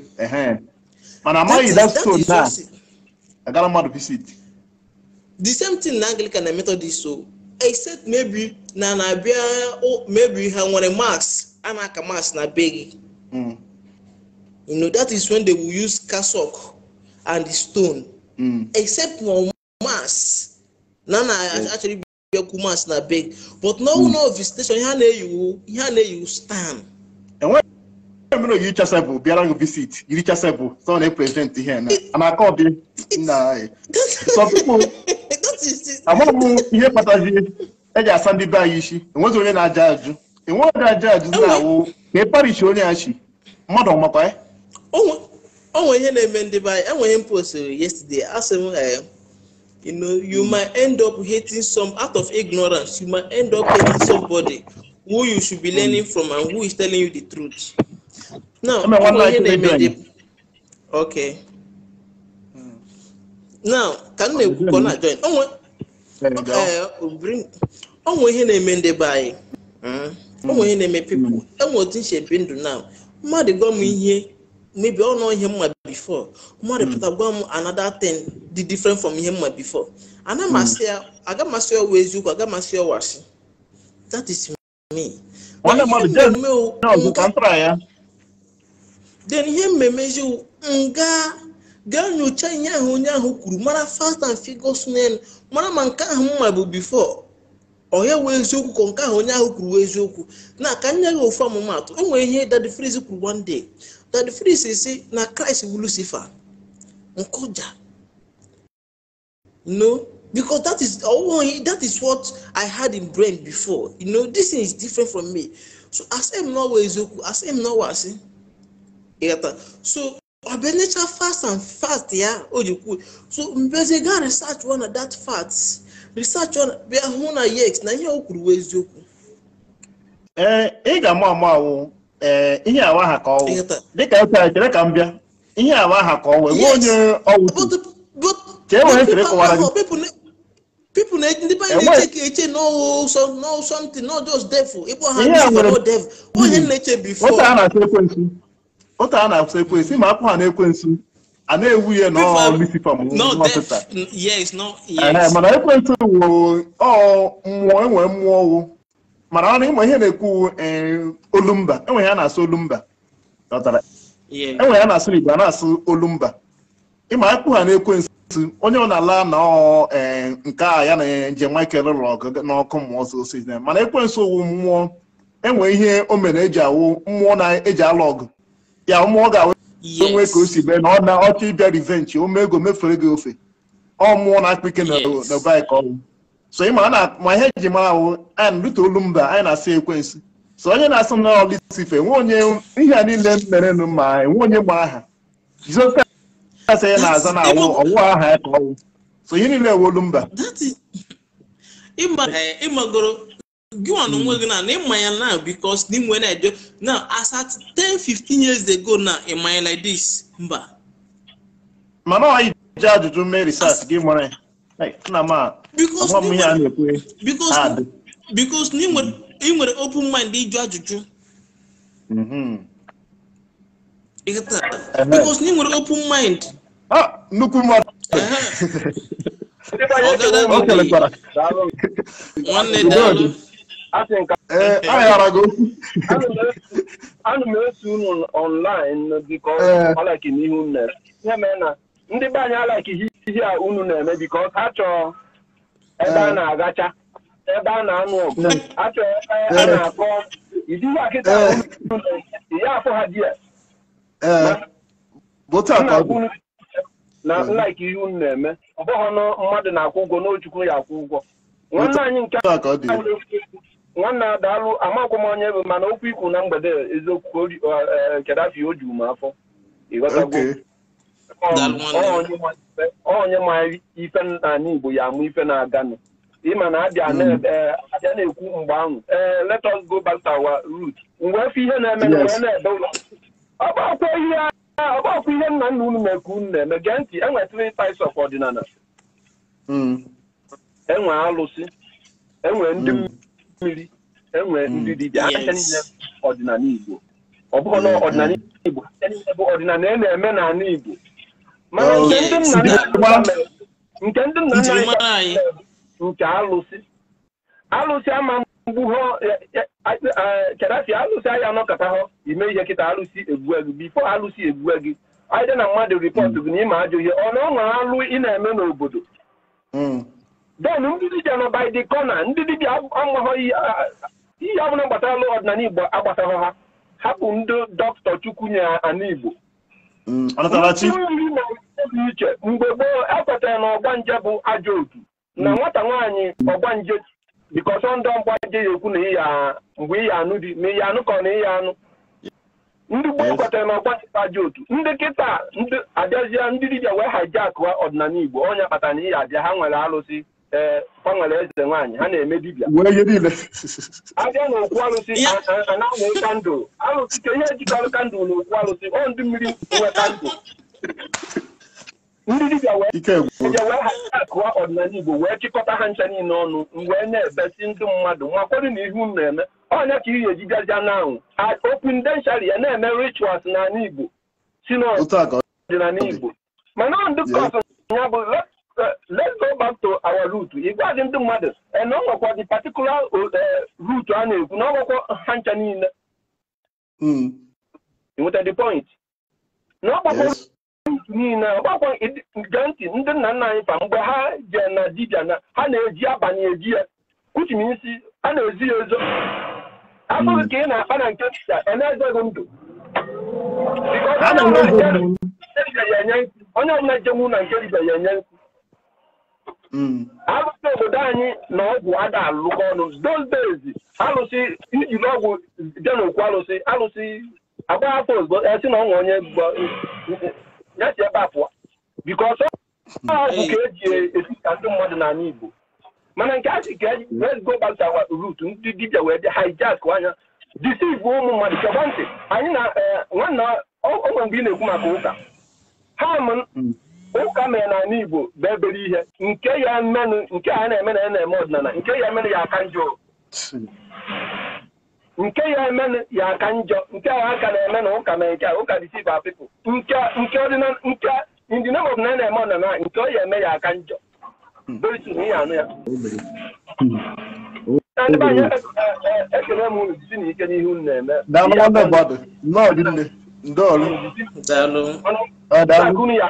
mana amaghị that stone na agara mmadụ visit the same thing na Anglican na Methodist so except maybe na na-abịa maybe ha nwere max a na-aka max na be gị hmm. you know that is when they will use cassock and the stone mm. except for max na na achọrọ ibiakwu max na be gị but na ọnwụ hmm. na visitation ihe a na-eyiwu ihe a na-eyiwu stan e mere yiri chasebụ bịara ngụ visit yiri chasebụ sọ na-eprezidenti ihe na ana aka ọdị nna anyị amaghị m ihe kpatara eji asa ndị be anyị isi enweghị onye na-aja ajụ enweghị onye aja ajụ na-awụ ka ị parishi onye a chi mmadụ ọmakwa ya onwe ihe na-eme ndị be anyị enweghị m postiri yesterday asị m you know you might end up hating some out of ignorance you might end up hating somebody who you should be learning from and who is telling you the truth now onwe ihe na okay now ka m na-ekwu ka ọ na-ajoin onwe eh, ihe na-eme ndị be anyị onwe hmm. ihe na-eme hmm. pipụl enwe otu nche ndụ na mmadụ gwa m hmm. ihe mebi ọnụ ihe mma bifo mmadụ pụta gwa m another dị different from ihe mma bifo anamasị ya agamasị eziokwu agamasị asị me ihe mmemme eziokwu nga gaa nyochaa ihe ahụ onye ahụ kwuru mara fast and figures n'elu mara ma nke ahụ mma bụ bifo onye wee eziokwu ka nke ahụ onye ahụ kwuru wee eziokwu na ka nye gị ofu ọmụmatụ o e nwere ihe dadi Freeze kwuru one day dadi Freeze si na Christ bụ Lucifer nkụja no because that is that is what I had in brain before you know this thing is different from me so asị m na eziokwu asị m na ọwa asị ịghọta so ọ bụ enecha fast and fast ya o ji kwuo so mbezi gaa research ọ na that fact research ọ bịa hụ na yes na ihe o kwuru wee eziokwu ee ị ga-ama ama awụ ee eh, ihe awa ha ka ọwụ dịka eche chere ka m bịa ihe awa ha ka ọwụ enwe onye ọwụ ka e nwere chere kọwara gị people na ndị be anyị na-eche eche no something no just devil ịkpọ ha devil onye hmm. na-eche before ụta a na-akwụsị ekwensu ma akwụ ha na ekwensu a na-ewu ihe mana ekwensu wụ mmụọ enwere mmụọ wụ mana ọ na ịma ihe na-ekwu e, olumba enwe ya na-asụ olumba enwe e ya na-asụ igbo a na-asụ olumba ịma akpụ ha na-ekwensu onye ọ na-ala na e, nke a ya na nje Michael lụrụ ọgụ n'ọkụ mmụọ ọsọsọ mana ekwensu wụ mmụọ enwe ihe o mere eji awụ mmụọ na-eji alụ ọgụ ya ụmụ ọ ga-awe nwee ka o si bee na ọ na ọchọ ịbịa rivenji ụmụ ego mefere gị ofe ọ mụọ na akpịke na baik ọnwụ so ịma na ma ihe eji mara ahụ anyị rute olu mba anyị na-asị ekwensu so onye na-asụ na ọlisife nwe onye ihe a niile mere nụ anyị enwe onye ma aha jizọs asị ya na-aza na awụ ọwụ aha ya ka ọnwụ so ihe niile ewe mba ịmagoro gịnwa na onwe gị na ịma ya na because na inwe na-eje na as at 10 15 years ago na ịma ya like this mba mana ọ ije ajụjụ mee research gị nwere nna m a ọmụ ihe a na-ekwe mm-hmm. because na ị nwere open mind ịjụ ajụjụ because na ị nwere open mind nnukwu mmadụ nwanne daalụ Asị aghara gị okwu anụ m eso unu ọnlaịn biko ọlaiki n'ihe unu na-eme ya mee na ndị be anyị alaiki ihe a unu na-eme biko ha chọọ ebe a eh. na-agacha ebe a na-anụ ọgụ eh. achọọ ebe a eh. na-akọ idihe akịta ya afọ ha di ya na nlaiki ihe unu na-eme ọ bụghị ọnụ mmadụ na-akwụ ụgwọ n'ochukwu ya akwụ ụgwọ nwanne anyị nke a na-e nwanne a daalụ amakwa m onye bụ mana okwu ikwu na mgbede eziokwu e, kedafi o juru m afọ ịghọtagwo onye ma ife anyị igbo ya amụ ife na-aganụ ịma na abịa hmm. e, na-ekwu mgbe ahụ ee let us go back to our root mgbe efe ihe na-eme na wee na-ede ụlọ ọgbakwa ihe nna nna unu na-ekwu unu na-eme gee ntị enwe three types of ọdịnala hmm. enwe alụsị enwe ndị hmm. mmiri enwere mm. ndị dibịa aka niile ọdịnala Igbo ọ bụghị na mm-hmm. ọdịnala Igbo bụ ọdịnala a e na-eme n'ala Igbo mana oh, nke ndị nna nna anyị nke alụsị alụsị ama mgbu ha e, e, kedasi alụsị anyị anọkọta ha ime ihe kịta alụsị egbue gị bifo alụsị egbue gị anyị dị na mmadụ ripọtụ mm. gị na ịma ajọ ihe ọ na ọnwa alụ ị na-eme n'obodo mm. den ndị dibia nọ by the corner ndị dibịa amaghọ ihe ọbụla gbatara ọdịnala igbo agbasaghọ ha ha hapụ ndị dọkịta chukwu nye ala igbo mmiri na dị iche mgbe gboo ekwetara na ọgbanje bụ ajọ otu na nwata nwaanyị ọgbanje bikọsọ ndị ọgbanje ya ekwu na ịya mgbe ịya anụ dị ma ịya anụ ka na ịya anụ ndị gboo kwetara na ọgbanje bụ ajọ otu mm. ndị kịta abịazie ndị dibịa wee hajia akụwa ọdịnala igbo onye kpatara na ịya abịa ha nwere alụsị ee ọ eze nwaanyị ha na-eme dibịa abịa na okwu arụsị na-anwụ kandụl arụsị ka ihe jikọrọ kandụl na okwu arụsị ọ ndị mmiri nwe kandụl ndị dibịa wee akụwa ọdịnala igbo wee chịkọta ha ncha niile ọnụ wee na-ebesi ndị mmadụ makwado na ihu m na-eme ọnya ka ihe eji gazia na anwụ opindenshari ya na-eme rituals na igbo si n'ọdịnala igbo mana ọ ndị kọsụ ya bụ let's go back to our root ịgwaghị ndị mmadụ na ọ nwekwa dị particular root a na-ekwu na ọ nwekwa ha ncha niile nweta point na ọgbakwa niile ọgbakwa gee ntị ndị nna nna anyị fa mgbe ha jee na dibia na ha na-eji abalị eji ya kuchi isi a na-ezi ya ezo abụghị ka ị na-akpa na nke a na-ezeghị ndụ onye ọbụla jenwu na nke dibia ya enye nkụ Mm. akụkọ obodo anyị na ọgwụ ada alụkọ ọnụ those days alụsị ijiri ọgwụ n'okwu alụsị alụsị agba afọ ozugbo esi na ọnwa onye ya si ebe a pụọ biko ọsọ ọgwụ ka eji etita ndị mmadụ anya Igbo mana nke achị ka eji wee go ndị wee dị hijack anya deceive ụmụ mmadụ chekwa ntị anyị na eh, nwanna ọ mgbe ị na-ekwu maka ụka ha mm. ụka mere na ala Igbo bụ ihe nke ya menụ nke a na-eme na ya na-eme ọdịnala nke ya emenụ ya aka njọ nke ya emenụ ya aka nke a aka na-eme na ụka mere nke a ụka dị siba pipụl nke nke ndị na ya na-eme ọdịnala nke ọ ya eme ya aka njọ ihe ya na-eme ya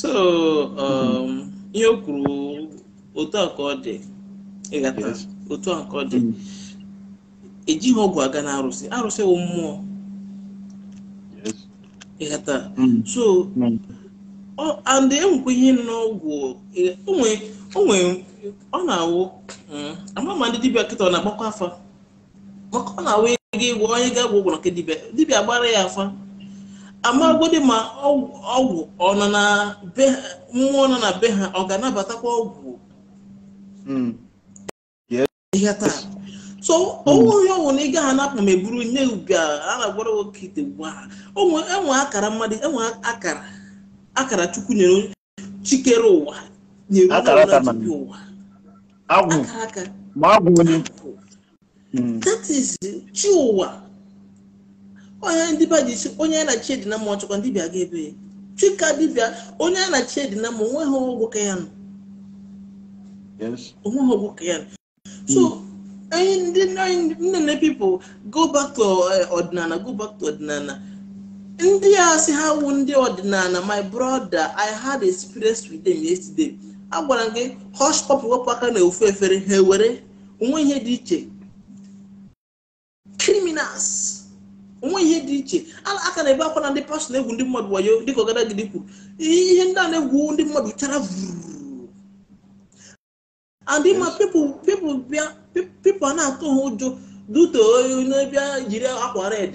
so um, ihe o kwuru otu a ka ọ dị ịghata otu a ka ọ dị mm. ejighị ọgwụ aga na arụsị arụsị wụ mmụọ ịghata mm. so mm. and enwekwa ihe n'ọgwụ onwe ọ na-awụ ama ma ndị dibịa kịta ọ na-agbakwa afa maka ọ na-awụ ego ịgwọ onye ga-agwụ ụgwọ na nke dibịa dibịa agbara ya afa amagodi ma ọgwụ ọnọ na be mmụọ nọ na be ha ọ ga-anabatakwa ọgwụ hmm. ihe taa so onwe hmm. onye ọnwụ na ị gaghị anapụ ma eburu nye uga a na-agwara nwoke ite ugbu a enwe akara mmadụ enwe akara akara chukwu nyere chikere ụwa nyere ụwa agwụ ma agwụ onye that is chi ụwa onye ndị onye a na-achị edina ndị bịa ebe ya chika dibịa onye a na-achị edina onweghị ọgwụ ka ya nọ so ndị nne na go back to eh, ọdịnala go back ọdịnala ndị a sị ha ndị ọdịnala my brother i had experience with them yesterday a gwara gị hush pop aka na ofu efere ha ewere onwe ihe dị iche criminals onwe ihe dị iche aka na-ebe akwa na ndị pastọ na-egwu ndị mmadụ wayo dịka ọgadagide kwuru ihe ndị a na-egwu ndị mmadụ chara vụrụ and ma a na-atụ ha ụjọ duto bịa jiri akwa red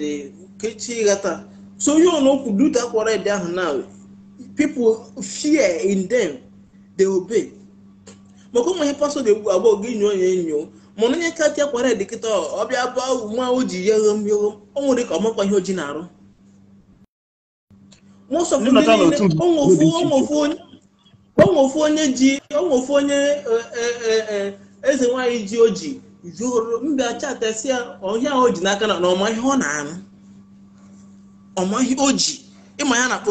kechi ghata so onye ọnokwu akwa red ahụ na people fie in them they obe maka ụmụ ihe pastọ egwu agbọghọ gị nyo ya enyo mụrụ onye kati tia dịkịta ọbịa bụ nwa o ji ya ghom o nwere ka ọmakwa ihe na-arụ onweofu onye ji onweofu onye e, e, e, eze nwanyị ji oji juru mbịa chatasi ya ọhịa o ji n'aka na ọma ihe ọ na na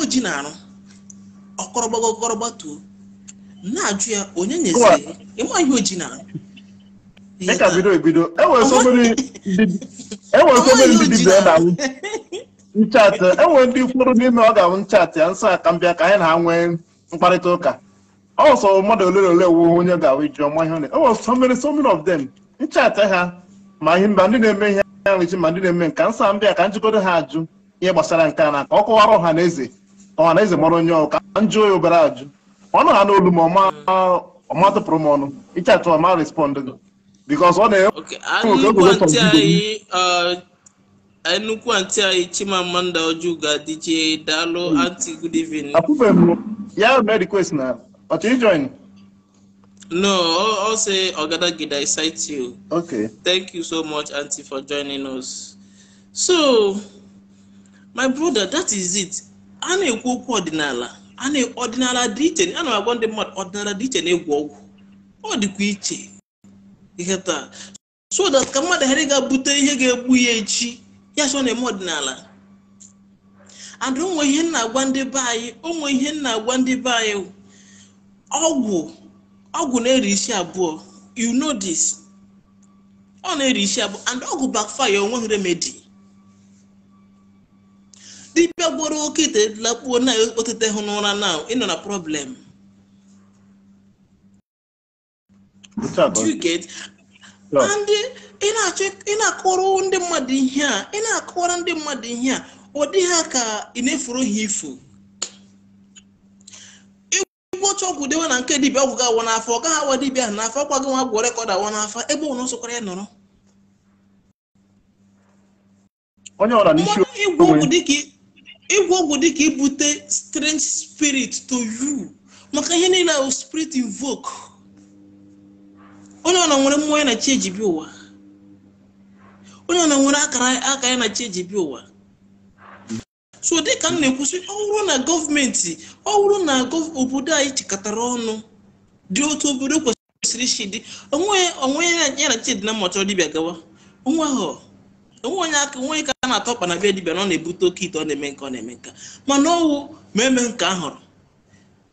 oji na-arụ na-ajụ ya onye nyeziri ịma ihe oji e e na dịka bido ebido enwere somere ndị dibịa na nchatị enwere ndị kwuru n'ime ọ ga awụ nchatị ya nsọ aka mbịa ka anyị na ha nwee mkparịta ụka ọsọ mmadụ ole na ole wuo onye ga-ahụ iji ọma ihe ọ enwere e so many of them nchatị ha ma ihe mba ndị na-eme ihe ha nwechi ma ndị na-eme nka nsọ mbịa ka njikọdo ha ajụ ihe gbasara nke a na ka ọ kụwara ọha na eze ọha na eze mara onye ọka njụ ya obere ajụ ọnụ ha n'olu ma ọma tụpụrụ m ọnụ ịchatụ ọma respond gị bikos ọ na-enwe nnukwu uh, anyị chimamanda ojuga dj daalụ hmm. anti good evening akwụbe m ya mee request na ọchọ ijoin No, I'll say Ogadagida, gida cite you. Okay. Thank you so much, anti, for joining us. So, my brother, that is it. A na-ekwu okwu ọdịnala. ọdịnala dị iche a na agwa ndị mmadụ ọdịnala dị iche na-egwu ọgwụ ọ dịkwa iche ihe taa so that ka mmadụ ghara ga-abute ihe ga-egbu ya echi ya so na-eme ọdịnala and onwe ihe nna agwa ndị be anyị onwe ihe nna agwa ndị be anyị ọgwụ ọgwụ na-eri isi abụọ you know this ọ na-eri isi abụọ and ọgwụ backfire onweghị remedi. dibịa gboro oke ite lakpuo na otite hụ n'ụra na ịnọ na problem ndị ị na ndị mmadụ ihe a ị na-akọrọ ndị mmadụ ihe a ọ dị ha ka ị na-efuru ha ifo ọcha ọgwụ dewe na nke dibịa ọgwụ ga-awa n'afọ ọ gaghị awa dibịa ahụ n'afọ ọkwa gị nwa gwọ rekọd awa n'afọ ebe ụlọ nsọkwara ya nọrọ onye ọra n'isi onwe ịgwọ ọgwụ dịka ibute strange spirit to you maka ihe niile ahụ spirit invoke onye ọna nwere mmụọ ya na chi ejibi ụwa onye ọna nwere aka ya na chi ejibi ụwa so dịka m na-ekwusị ọ na gọọmenti ọ na obodo anyị chịkọtara ọnụ dị otu obodo kwesịrị isi dị onwe ya na chi dị na mmacha dibịa gawa onwe ahụ onwe onye aka onye ka a na-atọ ọkpa na be dibịa na ọ na-ebute oke ito ọ na-eme nke ọ na-eme nka mana ọwụ ma eme nke a hụrụ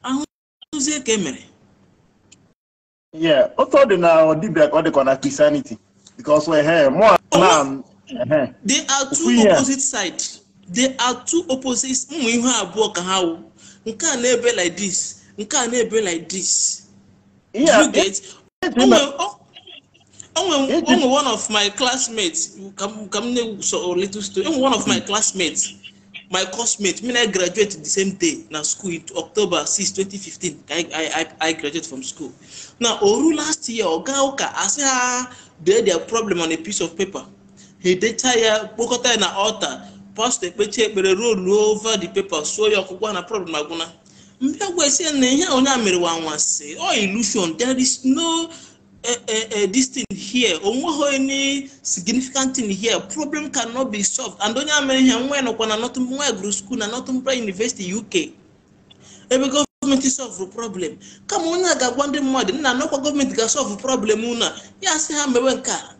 ahụzie ka e mere otu ọ dị na dibịa ka ọ dịkwa na Christianity because ehe eh, mụọ eh, eh, two opposite sides they two opposite ụmụ ihe abụọ ka ha wụ nke a na-ebe like dis nke a na-ebe like this onwe one of my classmates ka m na-eso oh, little story onwe one of my classmates my classmate mean i graduate the same day na school in october 6 2015 ka i i graduate from school na oru last year oga ụka asị ha dee their problem on a piece of paper he decha ya kpokọta ya na ọta pastọ ekpechi ekpere ruo over the paper suo ya ọkụkwa na problem agwụna mbịa gwa esi na ihe onye a mere wa anwansi ọ oh, ilusion there is no a, a, a, this thing here onweghị any significant thing here problem cannot be solved and onye amere ihe nwa nọkwa na nwa gụrụ school na Northumbria University UK ebe gọọmenti solve problem kama onye a ga-agwa ndị mmadụ nna nọkwa gọọmenti ga-solve problem unu ya sị ha mewe nke a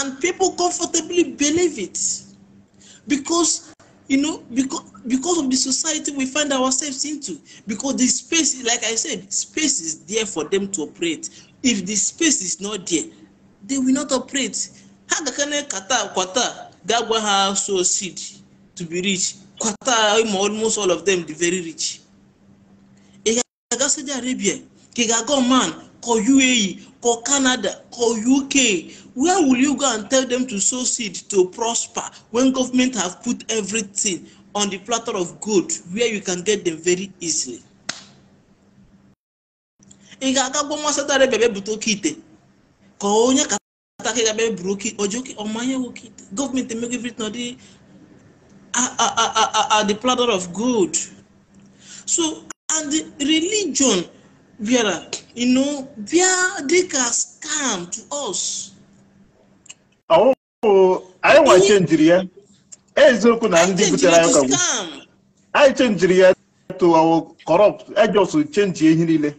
and people comfortably believe it because you know, because because of the society we find ourselves into, because the space, like I said, space is there for them to operate. If the space is not there, they will not operate. How gakane kata kwata gagwa ha so seed to be rich. Kwata almost all of them the very rich. Ị ga-aga Saudi Arabia, ka i UAE, For Canada, for UK. Where will you go and tell them to sow seed, to prosper, when government have put everything on the platter of gold where you can get them very easily? Ị ga-aga gwa nwa Saudi Arabia bebute oke ite ka onye kata ka ị ga-abịa buru oke ojoke ọmanye oke ite gọọmenti emego everything ọ dị at the platter of gold. So and religion bịara you know, where they come to us. Oh, anyị wachenjiri ya eziokwu na ndị butere anyị corrupt I just ihe niile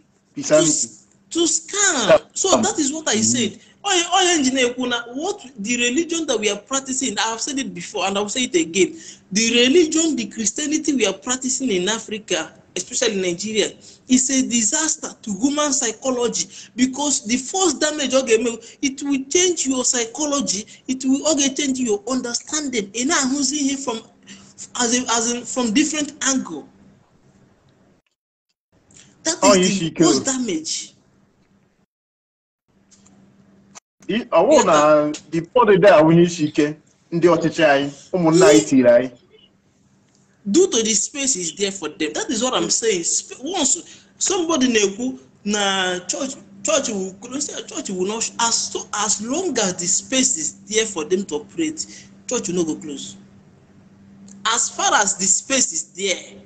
to scam so that is what i mm-hmm. said onye onye what the religion that we are practicing i have said it before and i will say it again the religion the christianity we are practicing in africa especially in nigeria is a disaster to human psychology because the first damage oge okay, it will change your psychology it will oge okay, change your understanding ị na-ahụzi ihe from as in, as in, from different angle that is oh, the first damage. ọwụ na the body dị ahụ n'isi ike ndị ọchịchị anyị ụmụnna anyị tiri anyị due to the space is there for them that is what i'm saying once somebody na-ekwu na church church will christian church will not as so as long as the space is there for them to operate church will not go close as far as the space is there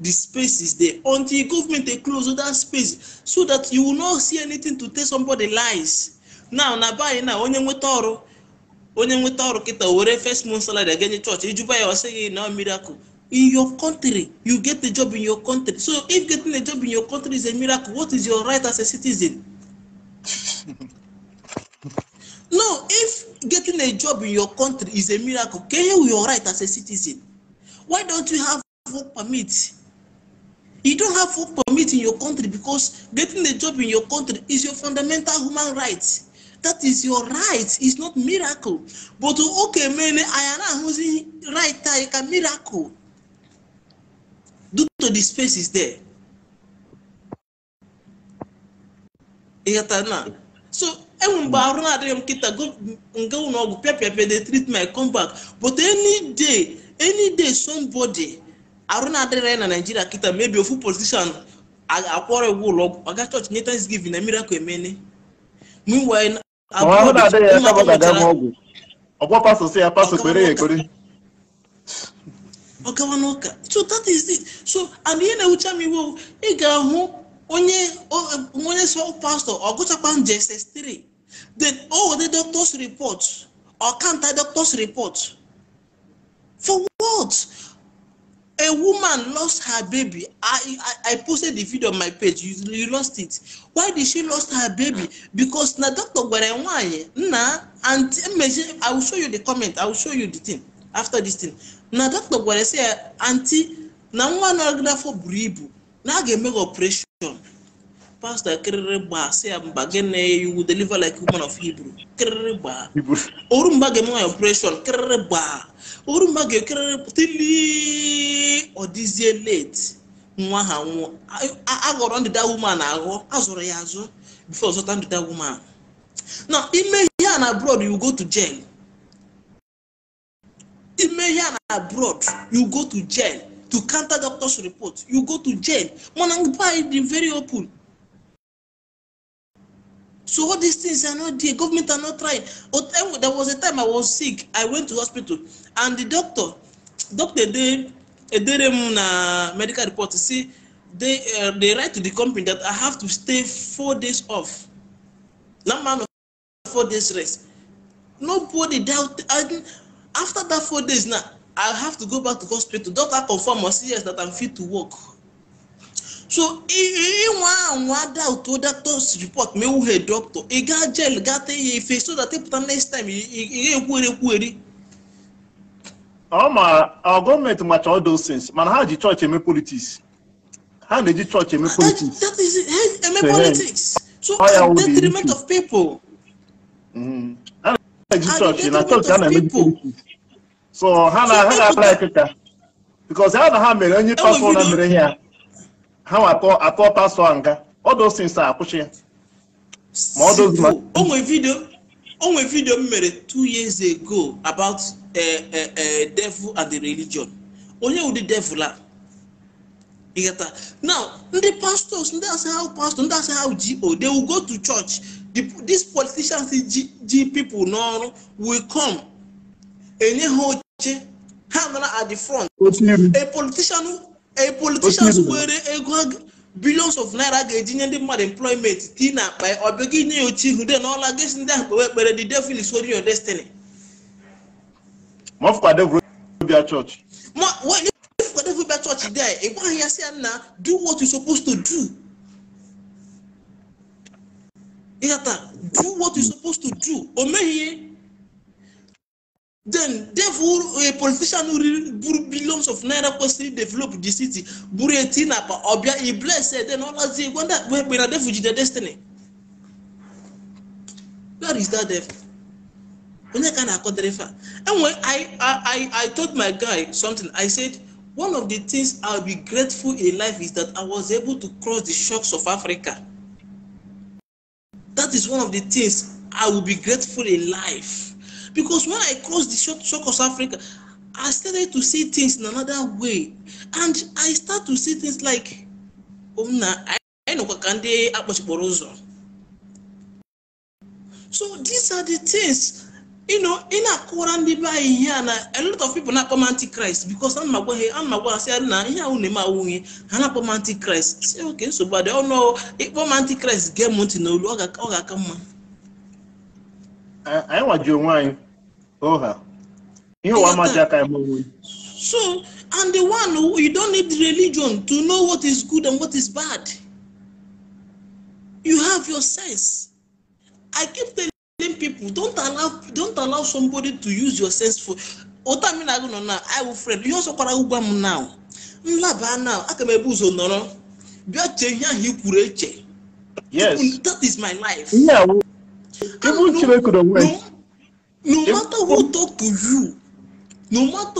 the space is there until government dey close that space so that you will not see anything to tell somebody lies now na by now onye nweta ọrụ onye nweta ọrụ kịta were first month salary ga-enye chọọchị ijuba ya ọsị gị miracle in your country you get the job in your country so if getting a job in your country is a miracle what is your right as a citizen no if getting a job in your country is a miracle can you your right as a citizen why don't you have work permit you don't have work permit in your country because getting a job in your country is your fundamental human right that is your right it's not miracle but oke mene anyị na-ahụzi right anyị ka miracle due to the space is there ịghọta na so enwe mgbe arụ na-adịghị m nkịta nga ụlọ ọgwụ pịapịapịa the treatment come back but any day any day somebody arụ na-adịrị na naijiria kịta mebi ofu politician akwọrọ iwu ụlọ ọgwụ aga chọọchị nye thanksgiving na miracle emene meanwhile ọgwa pastọ kwere so that is it so and ị ga-ahụ onye um, sọ pastọ ọ gụchakwa njeses3 then doctors report ọkanta doctors report for what a woman lost her baby I, I i posted the video on my page you, you lost it why did she lost her baby because na doctor gwere Nwanyi, nna and mmezi i will show you the comment i will show you the thing after this thing na doctor gwere say aunty na nwa nọgidafọ buru ibu na a ga-eme operation pastọ kịrịrị gbaa sị ya mba gịnị iwu deliver like woman of Hebrew kịrịrị gbaa oru mgba ga-eme nwaanyị operation kịrịrị gbaa oru mgba ga-ekịrịrị tili ọ late nwa ha nwụọ aghọrọ ndịda woman aghọ azụrụ ya azụ before zụta ndịda woman na ime ihe a na abroad you go to jail ime ihe a na abroad you go to jail to counter doctor's report you go to jail mana mgbe anyị dị very open So all these things are not there. Government are not trying. There was a time I was sick. I went to hospital, and the doctor, doctor they, they na medical report. See, they uh, they write to the company that I have to stay four days off. Not man of four days rest. Nobody doubt. And after that four days now, I have to go back to hospital. Doctor confirm or see yes that I'm fit to work. so ịnwa anwa doubt oda tos report ma ewughị doctor ị gaa jail gata ya ife so that ịpụta e next time ị ga-ekwuere ekwueri ọ gọọmenti macha all those things mana ha ji chọọchị eme politics ha na-eji chọọchị eme politics that is eme so mm-hmm. ha na-eji chọọchị na na-eme ha na ha ga-ala ya because ha na ha mere onye na mere ya ha nwa atọ a nga ọdụsinsa akwụchi ya ma ọdụzima onwe vidio m mere two years ago about eh, eh, eh, devil and the religion onye ụdị devil a ịghata now ndị pastors ndị asị how pastor ndị asị how go they will go to church these politicians ji ji people n'ọrụ will come enye ha oche ha at the front a politician a politicians were ego billions of naira ga-eji nye ndị mmadụ employment ti na akpa ọ bịa gị nye ya oche ihu de na gesi ndị ahụ kpewe ekpere the devil is holding your destiny. Mọfụkwadebia chọọchị. Mọfụkwadebia chọọchị dị anyị ị gwaghị ya sị ya na do what you supposed to do. Ịghọta do what you supposed to do o meghị ihe. Then, therefore, a politician who brought billions of naira costly develop the city, Buretina, Obia, he blessed, then all as they wonder where we are refuge their destiny. Where is that devil? Onye ka na-akọ dịrịfa. Anyway, I, I, I told my guy something. I said, one of the things I'll be grateful in life is that I was able to cross the shocks of Africa. That is one of the things I will be grateful in life. Because when I crossed the shock Africa, I started to see things in another way. And I start to see things like, Omna, um, I know what can they So these are the things, you know, in a Quran here, a lot of people not come antichrist because I'm not going I'm not going to say, I'm not going antichrist. Say, okay, so but they all know, if antichrist, get money, no, come. anyị nwaji onwe anyị oha ihe ụwa amaghị aka anyị onwe so and the one you don't need religion to know what is good and what is bad you have your sense i keep telling people don't allow don't allow somebody to use your sense for ụta mmiri agụ nọ na iwu fred ihe ọsọ kwara ụgwa m na nlaba na aka m ebu ụzọ nọrọ bịa chee ihe ahụ i that is my life even Chineke no matter who talk to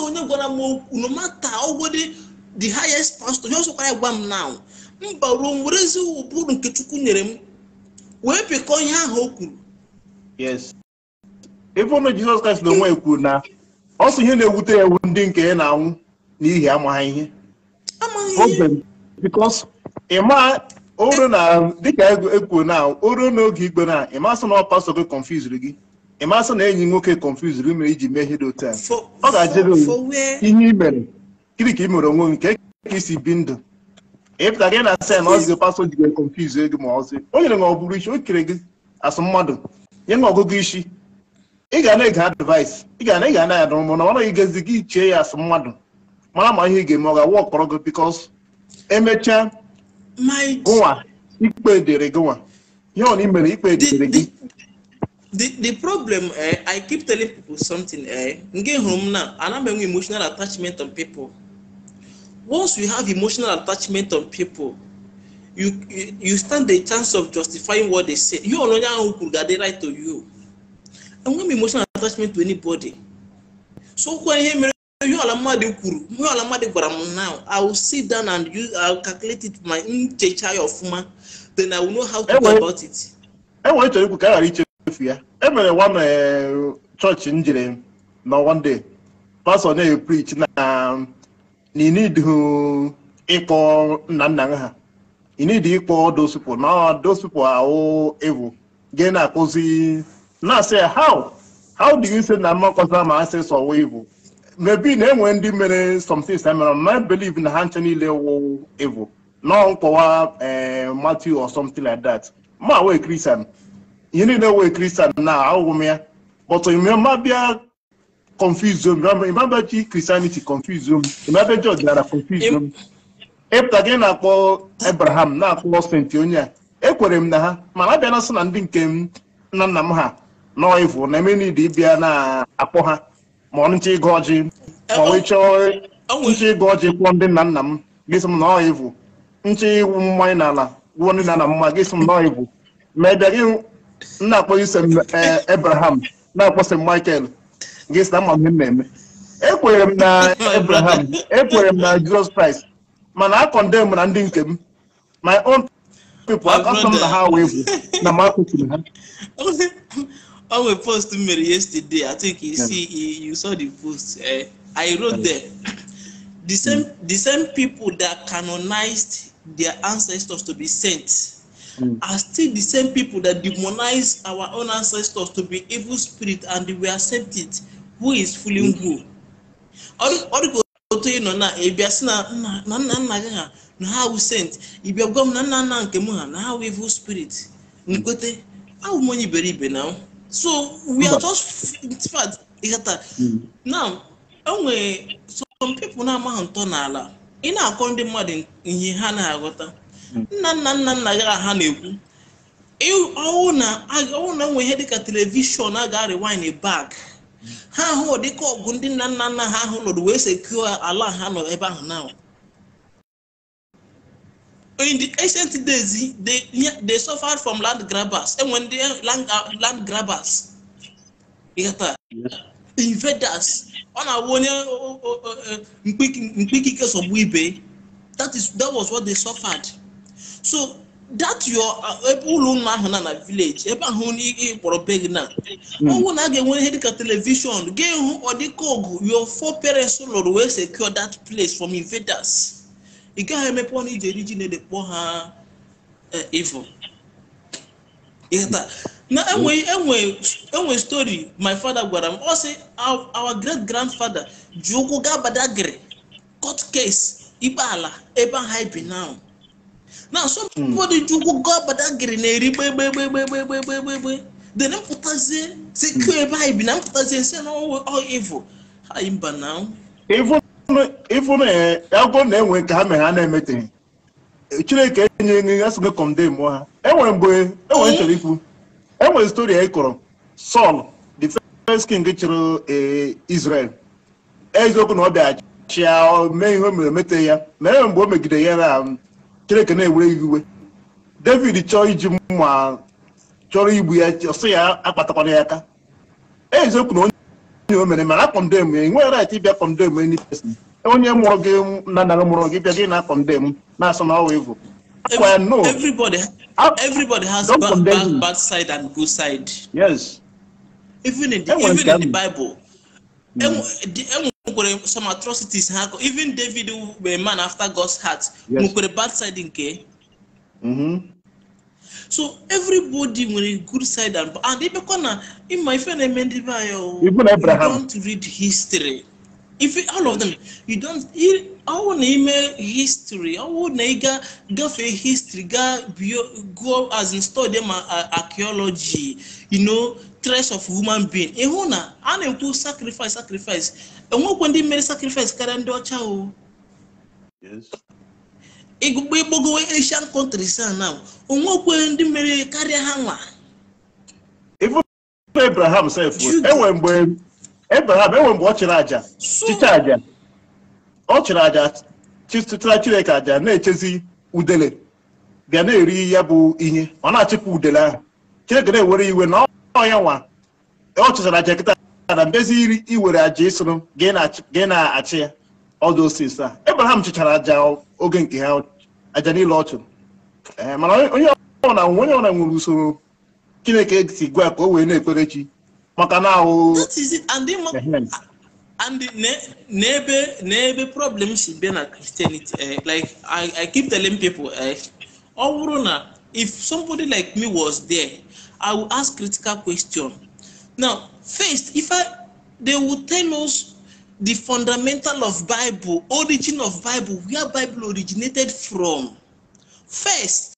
onye gwara m okwu no matter ọgwụdị the highest pastor onye ọsọkwara ya gwa m now mba ruo m nke Chukwu nyere m wee pịkọ ihe ahụ o kwuru yes ebe Jizọs Kraịst na onwe kwuru na ọ ihe na-ewute ya ewu ndị nke ya na-anwụ n'ihi amaghị ihe oru na dịka ekwuo e na oru n'oge igbe na ịmasị na ọpasọ gị confuse gị ịmasị na enyi nwoke confuse gị mere iji mehie dị otu a ọ ga-ajụrụ ihe i mere gịnị ka i mere onwe nke ka isi bi ndụ ịpụta gị na sen ọzi pasọ ji gị confuse gị ma ọzi o nyere gị ọbụrụ isi o kere gị asụ mmadụ nye na ọgụgụ isi ị ga na-ege advice ị ga na-ege anaghị adụ mụ na ọ naghị gezi gị chie ya asụ mmadụ mara ma ihe ị ga-eme ọ ga-awa ọkpọrọ gị because emechaa gụnwa ikpe dịrị the the problem eh, i keep telling people something eh, nke home now. And I am having emotional attachment on people once you have emotional attachment on people you you, stand the chance of justifying what they say you know who could get the right to you I'm m emotional attachment to anybody so when he. ihe ọla mmadụ kwuru ọla mmadụ gwara m now i sit down and use i will my nchecha ya ọfụma then i will know how to go about it. enwere chọrọ ikwu ka a ghara ichefu ya e one eh, chọọchị m na one day pastọ na na need ịkpọ nna nna ha you need ịkpọ those people na those people gị na-akụzi na-asị how how do you say na ma asị sọwa evu maybe na-enwe ndị mere something things na mere ma believe na ha nche niile wụ evil nọ nkọwa eh, Matthew or something like that ma wee kristian ihe niile wee kristian na ahụghị m ya but mabịa confuse m ịmabịa chi christianity confuse m ịmabịa ji ọdịnala confuse m ịpụta gị na-akpọ abraham na-akpọ senti onye a ekwere m na ha mana abịa na sị na ndị nke nna nna m ha nọ evil na eme n'ide ịbịa na-akpọ ha ma ọnụcha ịgụ ọjị ma wee chọọ ncha ịgụ ọjị kwụọ ndị nna nna m gịsị m na ọ ivu ncha iwu mmanya n'ala gwụọ ndị nna nna m ma gịsị m na ọ ivu ma ị bịaghị na-akpọghị sem ebraham na-akpọ sem michael gịsị na mma m na-eme ekwere m na ebraham ekwere m na jizọs kraịst mana a kọndem na ndị nke m my own people akọsọ m na ha wee bụ na m akwụsịrị ha on a post you made yesterday, I think you see you saw the post. Uh, I wrote there. The same the same people that canonized their ancestors to be saints mm. are still the same people that demonize our own ancestors to be evil spirit and we accept it. Who is fooling mm. who? Ọdụkọ otu ị nọ na ị bịa sị na nna nna gị ha na ha wụ saint ị bịa gwa m na nna nna nke m ha na evil spirit nkwete ahụ m onye iberibe na m. so we are just fact mm. now enwere some pipo na-amaghị ntọ n'ala ị na-akọ ndị mmadụ ihe ha na-aghọta mm. nna nna nna nna ha na-ekwu ọwụ na enwe ihe dịka telivishọn a ga-arịwine bak mm. ha ahụ dịka ọgụ ndị nna nna nna ha ahụ nọdụ wee sekụọ ala ha nọ ebe ahụ na in the ancient days, they, they suffered from land grabbers. And when they land, uh, land grabbers, invaders, on our oh, oh, oh, that is that was what they suffered. So that your uh, ebe ụlọ ụlọ village ebe ahụ beg hmm. na a ga-enwe ihe dịka ga-ehu ọdịka your four parents lụrụ wee secure that place from invaders. ị gaghị emepe ọnụ iji eri ji na ede kpọọ ha e, ifo enwe stori my fada gwara m ọ sị our great grandfather ji ụkwụ gaa badagịrị court case ikpe ala ebe aha ibi now na somebody hmm. ji ụkwụ gaa badagịrị na-eri gbegbegbegbegbegbegbegbe then mpụtazie si kụọ ebe anyị bi na mpụtazie nsi na ọwụ ọ ivo ha mba na ifu na agwọ na-enwe nke ha mere ha na-emeteghị chineke enye enye ya sịgo kọmde mmụọ ha enwere e mgbe enwere nchọrọ ikwu enwere stori anyị e kụrụ Sọl the first king chịrị e, Israel eziokwu na ọ bịaghachi ya mee ihe o mere emete ya ma enwere mgbe o megide ya na chineke na-ewere ya iwe David chọọ iji mma chọrọ igbu ya ọsị ya akpatakwana ya aka eziokwu na onye o mere mana akọmde m enweghị right ịbịa kọmde m any person onye mụrụ gị na nara mụrụ gị bịa gị na Everybody, ah, everybody has bad, bad, bad side and good side. Yes. Even in the, even in the Bible, mm. some atrocities happen. even David, a man after God's heart, yes. bad side in mm -hmm so everybody when good side and and ịbịakwa na ịma my friend, i ndị be anyị o you don't read history if all of them you don't want to read history ọwụ na go for history Go bio go as in study ma archaeology you know trace of human being ịhụ na to na sacrifice sacrifice enwekwa ndị mere sacrifice karịa ndị ọcha igụgba igbogowe Asian countries a na onwekwe ndị mere karịa ha nwa Abraham sef enwe mgbe Abraham enwe mgbe ọ chịrị aja chicha aja ọ chịrị aja chịtụtara Chineke aja na-echezi udele bịa na-eri ya bụ ihe ọ na-achịpụ udele ahụ Chineke na-ewere iwe na ọya nwa ọ chịchara aja kịta na mbezi iri iwere aja ịsụrụ gị na-achị ya ọdụ osisi a Abraham chịchara aja oge nke ha aja niile eh, ọchụ mana onye nwere usoro chineke si gwa ka o wee na maka na ahụ and n'ebe n'ebe problem si bịa na christianity eh, like I, i keep telling people eh, ọ bụrụ na if somebody like me was there i would ask critical question now first if i they would tell us the fundamental of Bible, origin of Bible, where Bible originated from. First,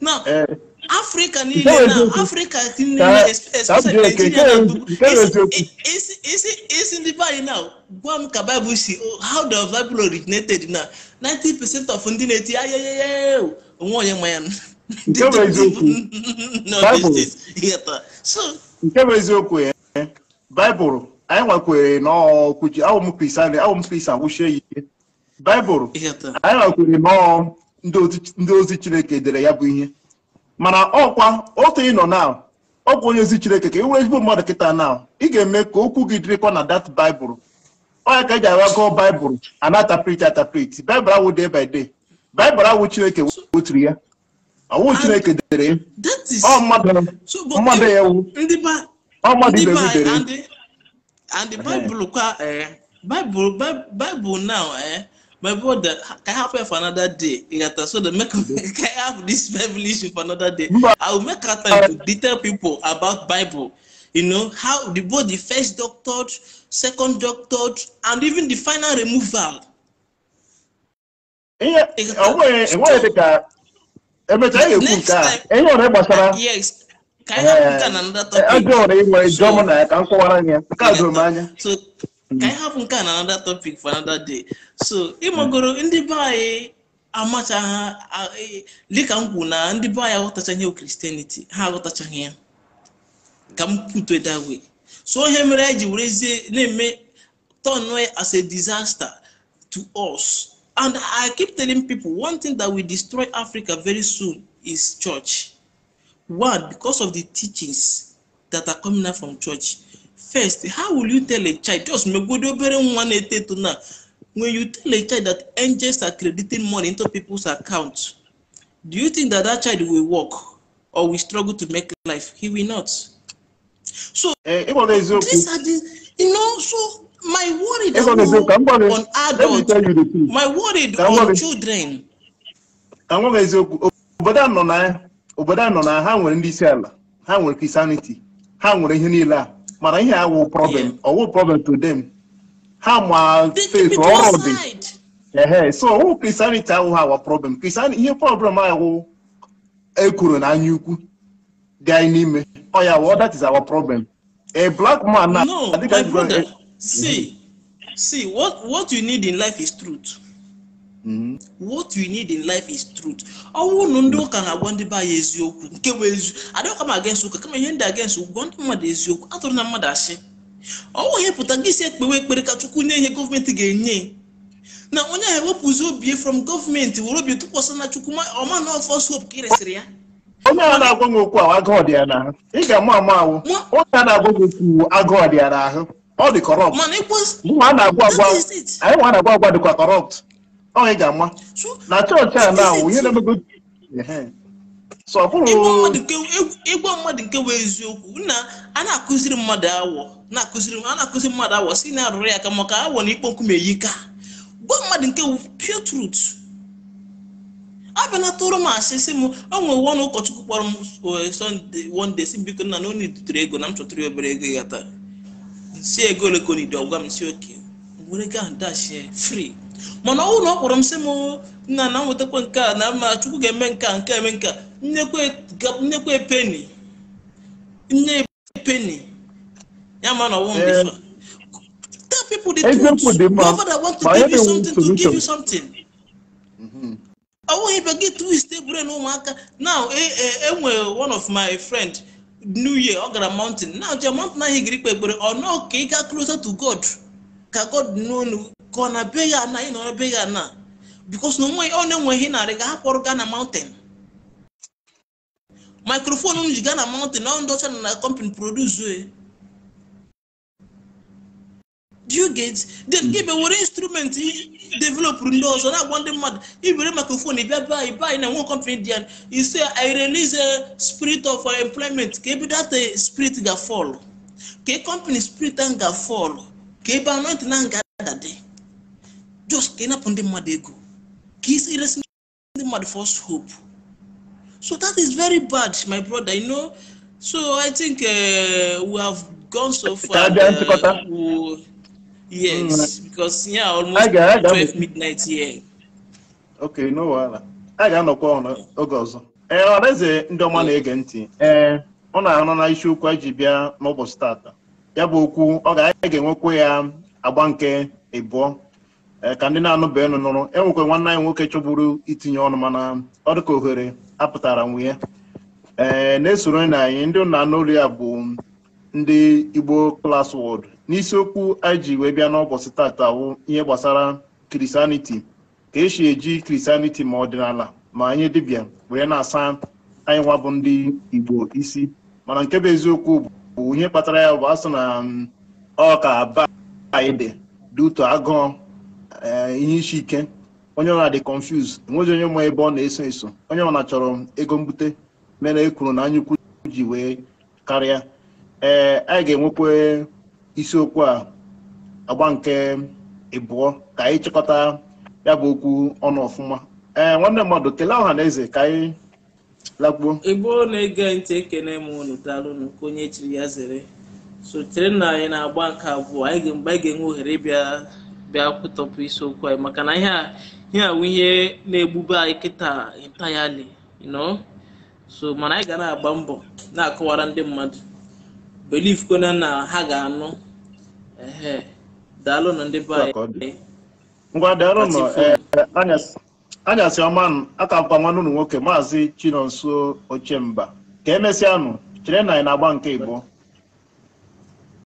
now uh, Africa now Africa niile especially Is na esi esi now gwa ka Bible si oh, how the Bible originated now? ninety percent of ndị na-eti ayeyeye onwe oh. onye ma ya na so nke bụ eziokwu ya Bible anyị nwekwere n'ọkwuchi awụm kristian awụm kristian wụchie ya ike baịbụl anyị nwekwere nọọ ndị ozi chineke dere ya bụ ihe mana ọkwa otu ị nọ na ọ bụ onye ozi chineke ka ị e were ezigbo mmadụ kịta na ị ga-eme ka okwu gị dịrịkwa na dat baịbụl onye ka eji awa gụọ baịbụl anatapriti atapriti baịbụl awụ day by day baịbụl awụ chineke weturu ya ọwụ chineke dere ọ mmadụ ya wu ọ mmadụ ibe gị dere and the bible kwa eh bible bible now eh my brother can have it for another day You yata so the make can have this bible issue for another day i will make time to detail people about bible you know how the both the first doctor, second doctor, and even the final removal. ihe ọnwere dịka emecha ya ekwu nke a enye ọrụ gbasara ka anyị hapụ nke a na eh, another hmm. topic for another day so ịmagoro ndị be anyị amachaghị dịka m kwuru na ndị be anyị aghọtachaghị ihe kristianity ha aghọtachaghị ya ka m put it that way so ihe mere anyị ji werezie na-eme turn as a disaster to us and i keep telling people one thing that will destroy africa very soon is church one, because of the teachings that are coming out from church. First, how will you tell a child, just one when you tell a child that angels are crediting money into people's accounts, do you think that that child will work or will struggle to make life? He will not. So, uh, these are the, you know, so my worry gonna, on adults, my worry on children. But I'm not obodo a nọ na ha nwere ndị isi ala ha nwere kristianity ha nwere ihe niile a mana ihe a wụ problem ọwụ problem to them ha ma faith ọrụ dị ehe so ọwụ kristianity awụ ha wa problem kristianity ihe problem awụ ekworo na anya ukwu dị anyị n'ime ọ ya wụ that is our problem a black man na no my brother eh, see see what what you need in life is truth Mm-hmm. what you need in life is truth ọnwụ ụnụ ndị ụka na-agwa ndị be anyị eziokwu nke bụ ezi adịghịkwa ma against ụka kama ihe ndị against ụgwọ ndị mmadụ eziokwu atụrụ na mmadụ asị ọnwụ ihe pụta gị si ekpewe ekpere ka chukwu nye ihe gọọmenti ga-enye na onye ahụ ewepụzi obi from gọọmenti were obi tụkwasị na chukwu ọma na ọfọs ka ị resịrị ya onye a na-agwa gị okwu ahụ agụọ dị ị ga-ama ama ahụ onye a na-agwa gị okwu agụọ dị ya ọ dị kọrọpt anyị nwa na-agwa agwa dịkwa kọrọpt ọ ị ga-ama na chọọchị a na awụ ihe na-emego ịgwa mmadụ nke bụ eziokwu na a na-akụziri mmadụ awọ na-akụziri a na-akụziri mmadụ awọ si na arụrụ ya aka maka awọ na ikpo nkume yi ka gwa mmadụ nke bụ pure truth abịa na tụrụ m asị sị m o nwere ọnụ ụkọchukwu kpọrọ m Sunday one si m biko nna na onye dutere ego na m chọtara obere ego ya taa si ego ole ọgwa m si oke were gaa dashi free mana ọnwụ na ọ kpọrọ m sị m nna na nwetakwa nke a na mma chukwu ga-eme nke a nke eme nke a nnekwe peni nne epeni ya ma na ọnwụ m tell people the mm-hmm. gị twist ebure na ụmụaka now enwe e, e one of my friend new year ọ gara mountain now je mountain ahụ giri ekpere ọ ka ị ga closer ka ka ọ na be ya na ị nọrọ be ya na bikos na onwe ọ na-enweghị narị ga akpọrọ gaa na mountain microphone m ji gaa na mountain ọ ndị ọcha na na company produce e. do you get then gị hmm. were instrument developụrụ ndị ọzọ na-agwa ndị mmadụ ibere microphone bịa be anyị be anyị na nwe company dị ya ise i release a spirit of employment ka ebe that spirit ga fall ka e company spirit ahụ ga fall ka ebe anointing ahụ ga adade just ka ị napụ ndị mmadụ ego ka e iresi ndị mmadụ first hope so that is very bad my brother you know so i think uh, we have gone so far uh, yes mm. because yeah almost 12 midnight here okay no wahala a ga-anọkwa oge ọzọ ee ọreze ndị ọma na-ege ntị ee eh, ọ na-anọ na isiokwu a ji bịa n'ụbọchị tata ya bụ okwu ọ ga-aga ga-enwekwa ya agba nke ịbụọ Eh, ka ndị na-anụba enu nụrụ enwekwa nwanne anyị nwoke chọburu itinye ọnụ mana ọ dị ka ohere apụtara nwunye ee eh, na-esoro na anyị ndị nna n'olu ya bụ ndị Igbo Class World n'isiokwu anyị ji wee bịa n'ụbọchị tata wụ ihe gbasara Christianity ka esi eji Kristaniti ma ọdịnala ma anyị dibịa wee na-asa anyị nwa bụ ndị Igbo isi mana nke bụ eziokwu bụ ihe kpatara ya bụ asị na mm, ọ ka ba anyị dị dị agụọ Eh, ihe isi ike onye ọbụla dị confuse enweghị onye nwe ebe ọ na-eso eso onye ọbụla chọrọ ego mbute mere ekwuru kwuru na anyaukwu ji wee karịa ee eh, anyị ga-enwekwa isiokwu a agba nke ịbụọ ka anyị chịkọta ya bụ okwu ọnụ ọfụma ee eh, nwanne mmadụ kelee ọha na eze ka anyị lakpuo igbo na-ege ntị ekene m unu daalụnụ ka onye chiri ya zere sotere na anyị na-agba nke abụọ anyị ga-enwe ohere bịa. bịa kwụtọpụ isiokwu anyị maka na ihe a ihe a ihe na-egbube anyị kịta entirely you so mana anyị ga na-agba mbọ na-akọwara ndị mmadụ belief kwana na ha ga-anụ ehe daalụ na ndị be anyị ngwa daalụ eh, anyasị ọma aka mkpa nwanne ụlọ nwoke maazị chinonso ochemba ka emesịanụ chere na ị na-agba nke igbo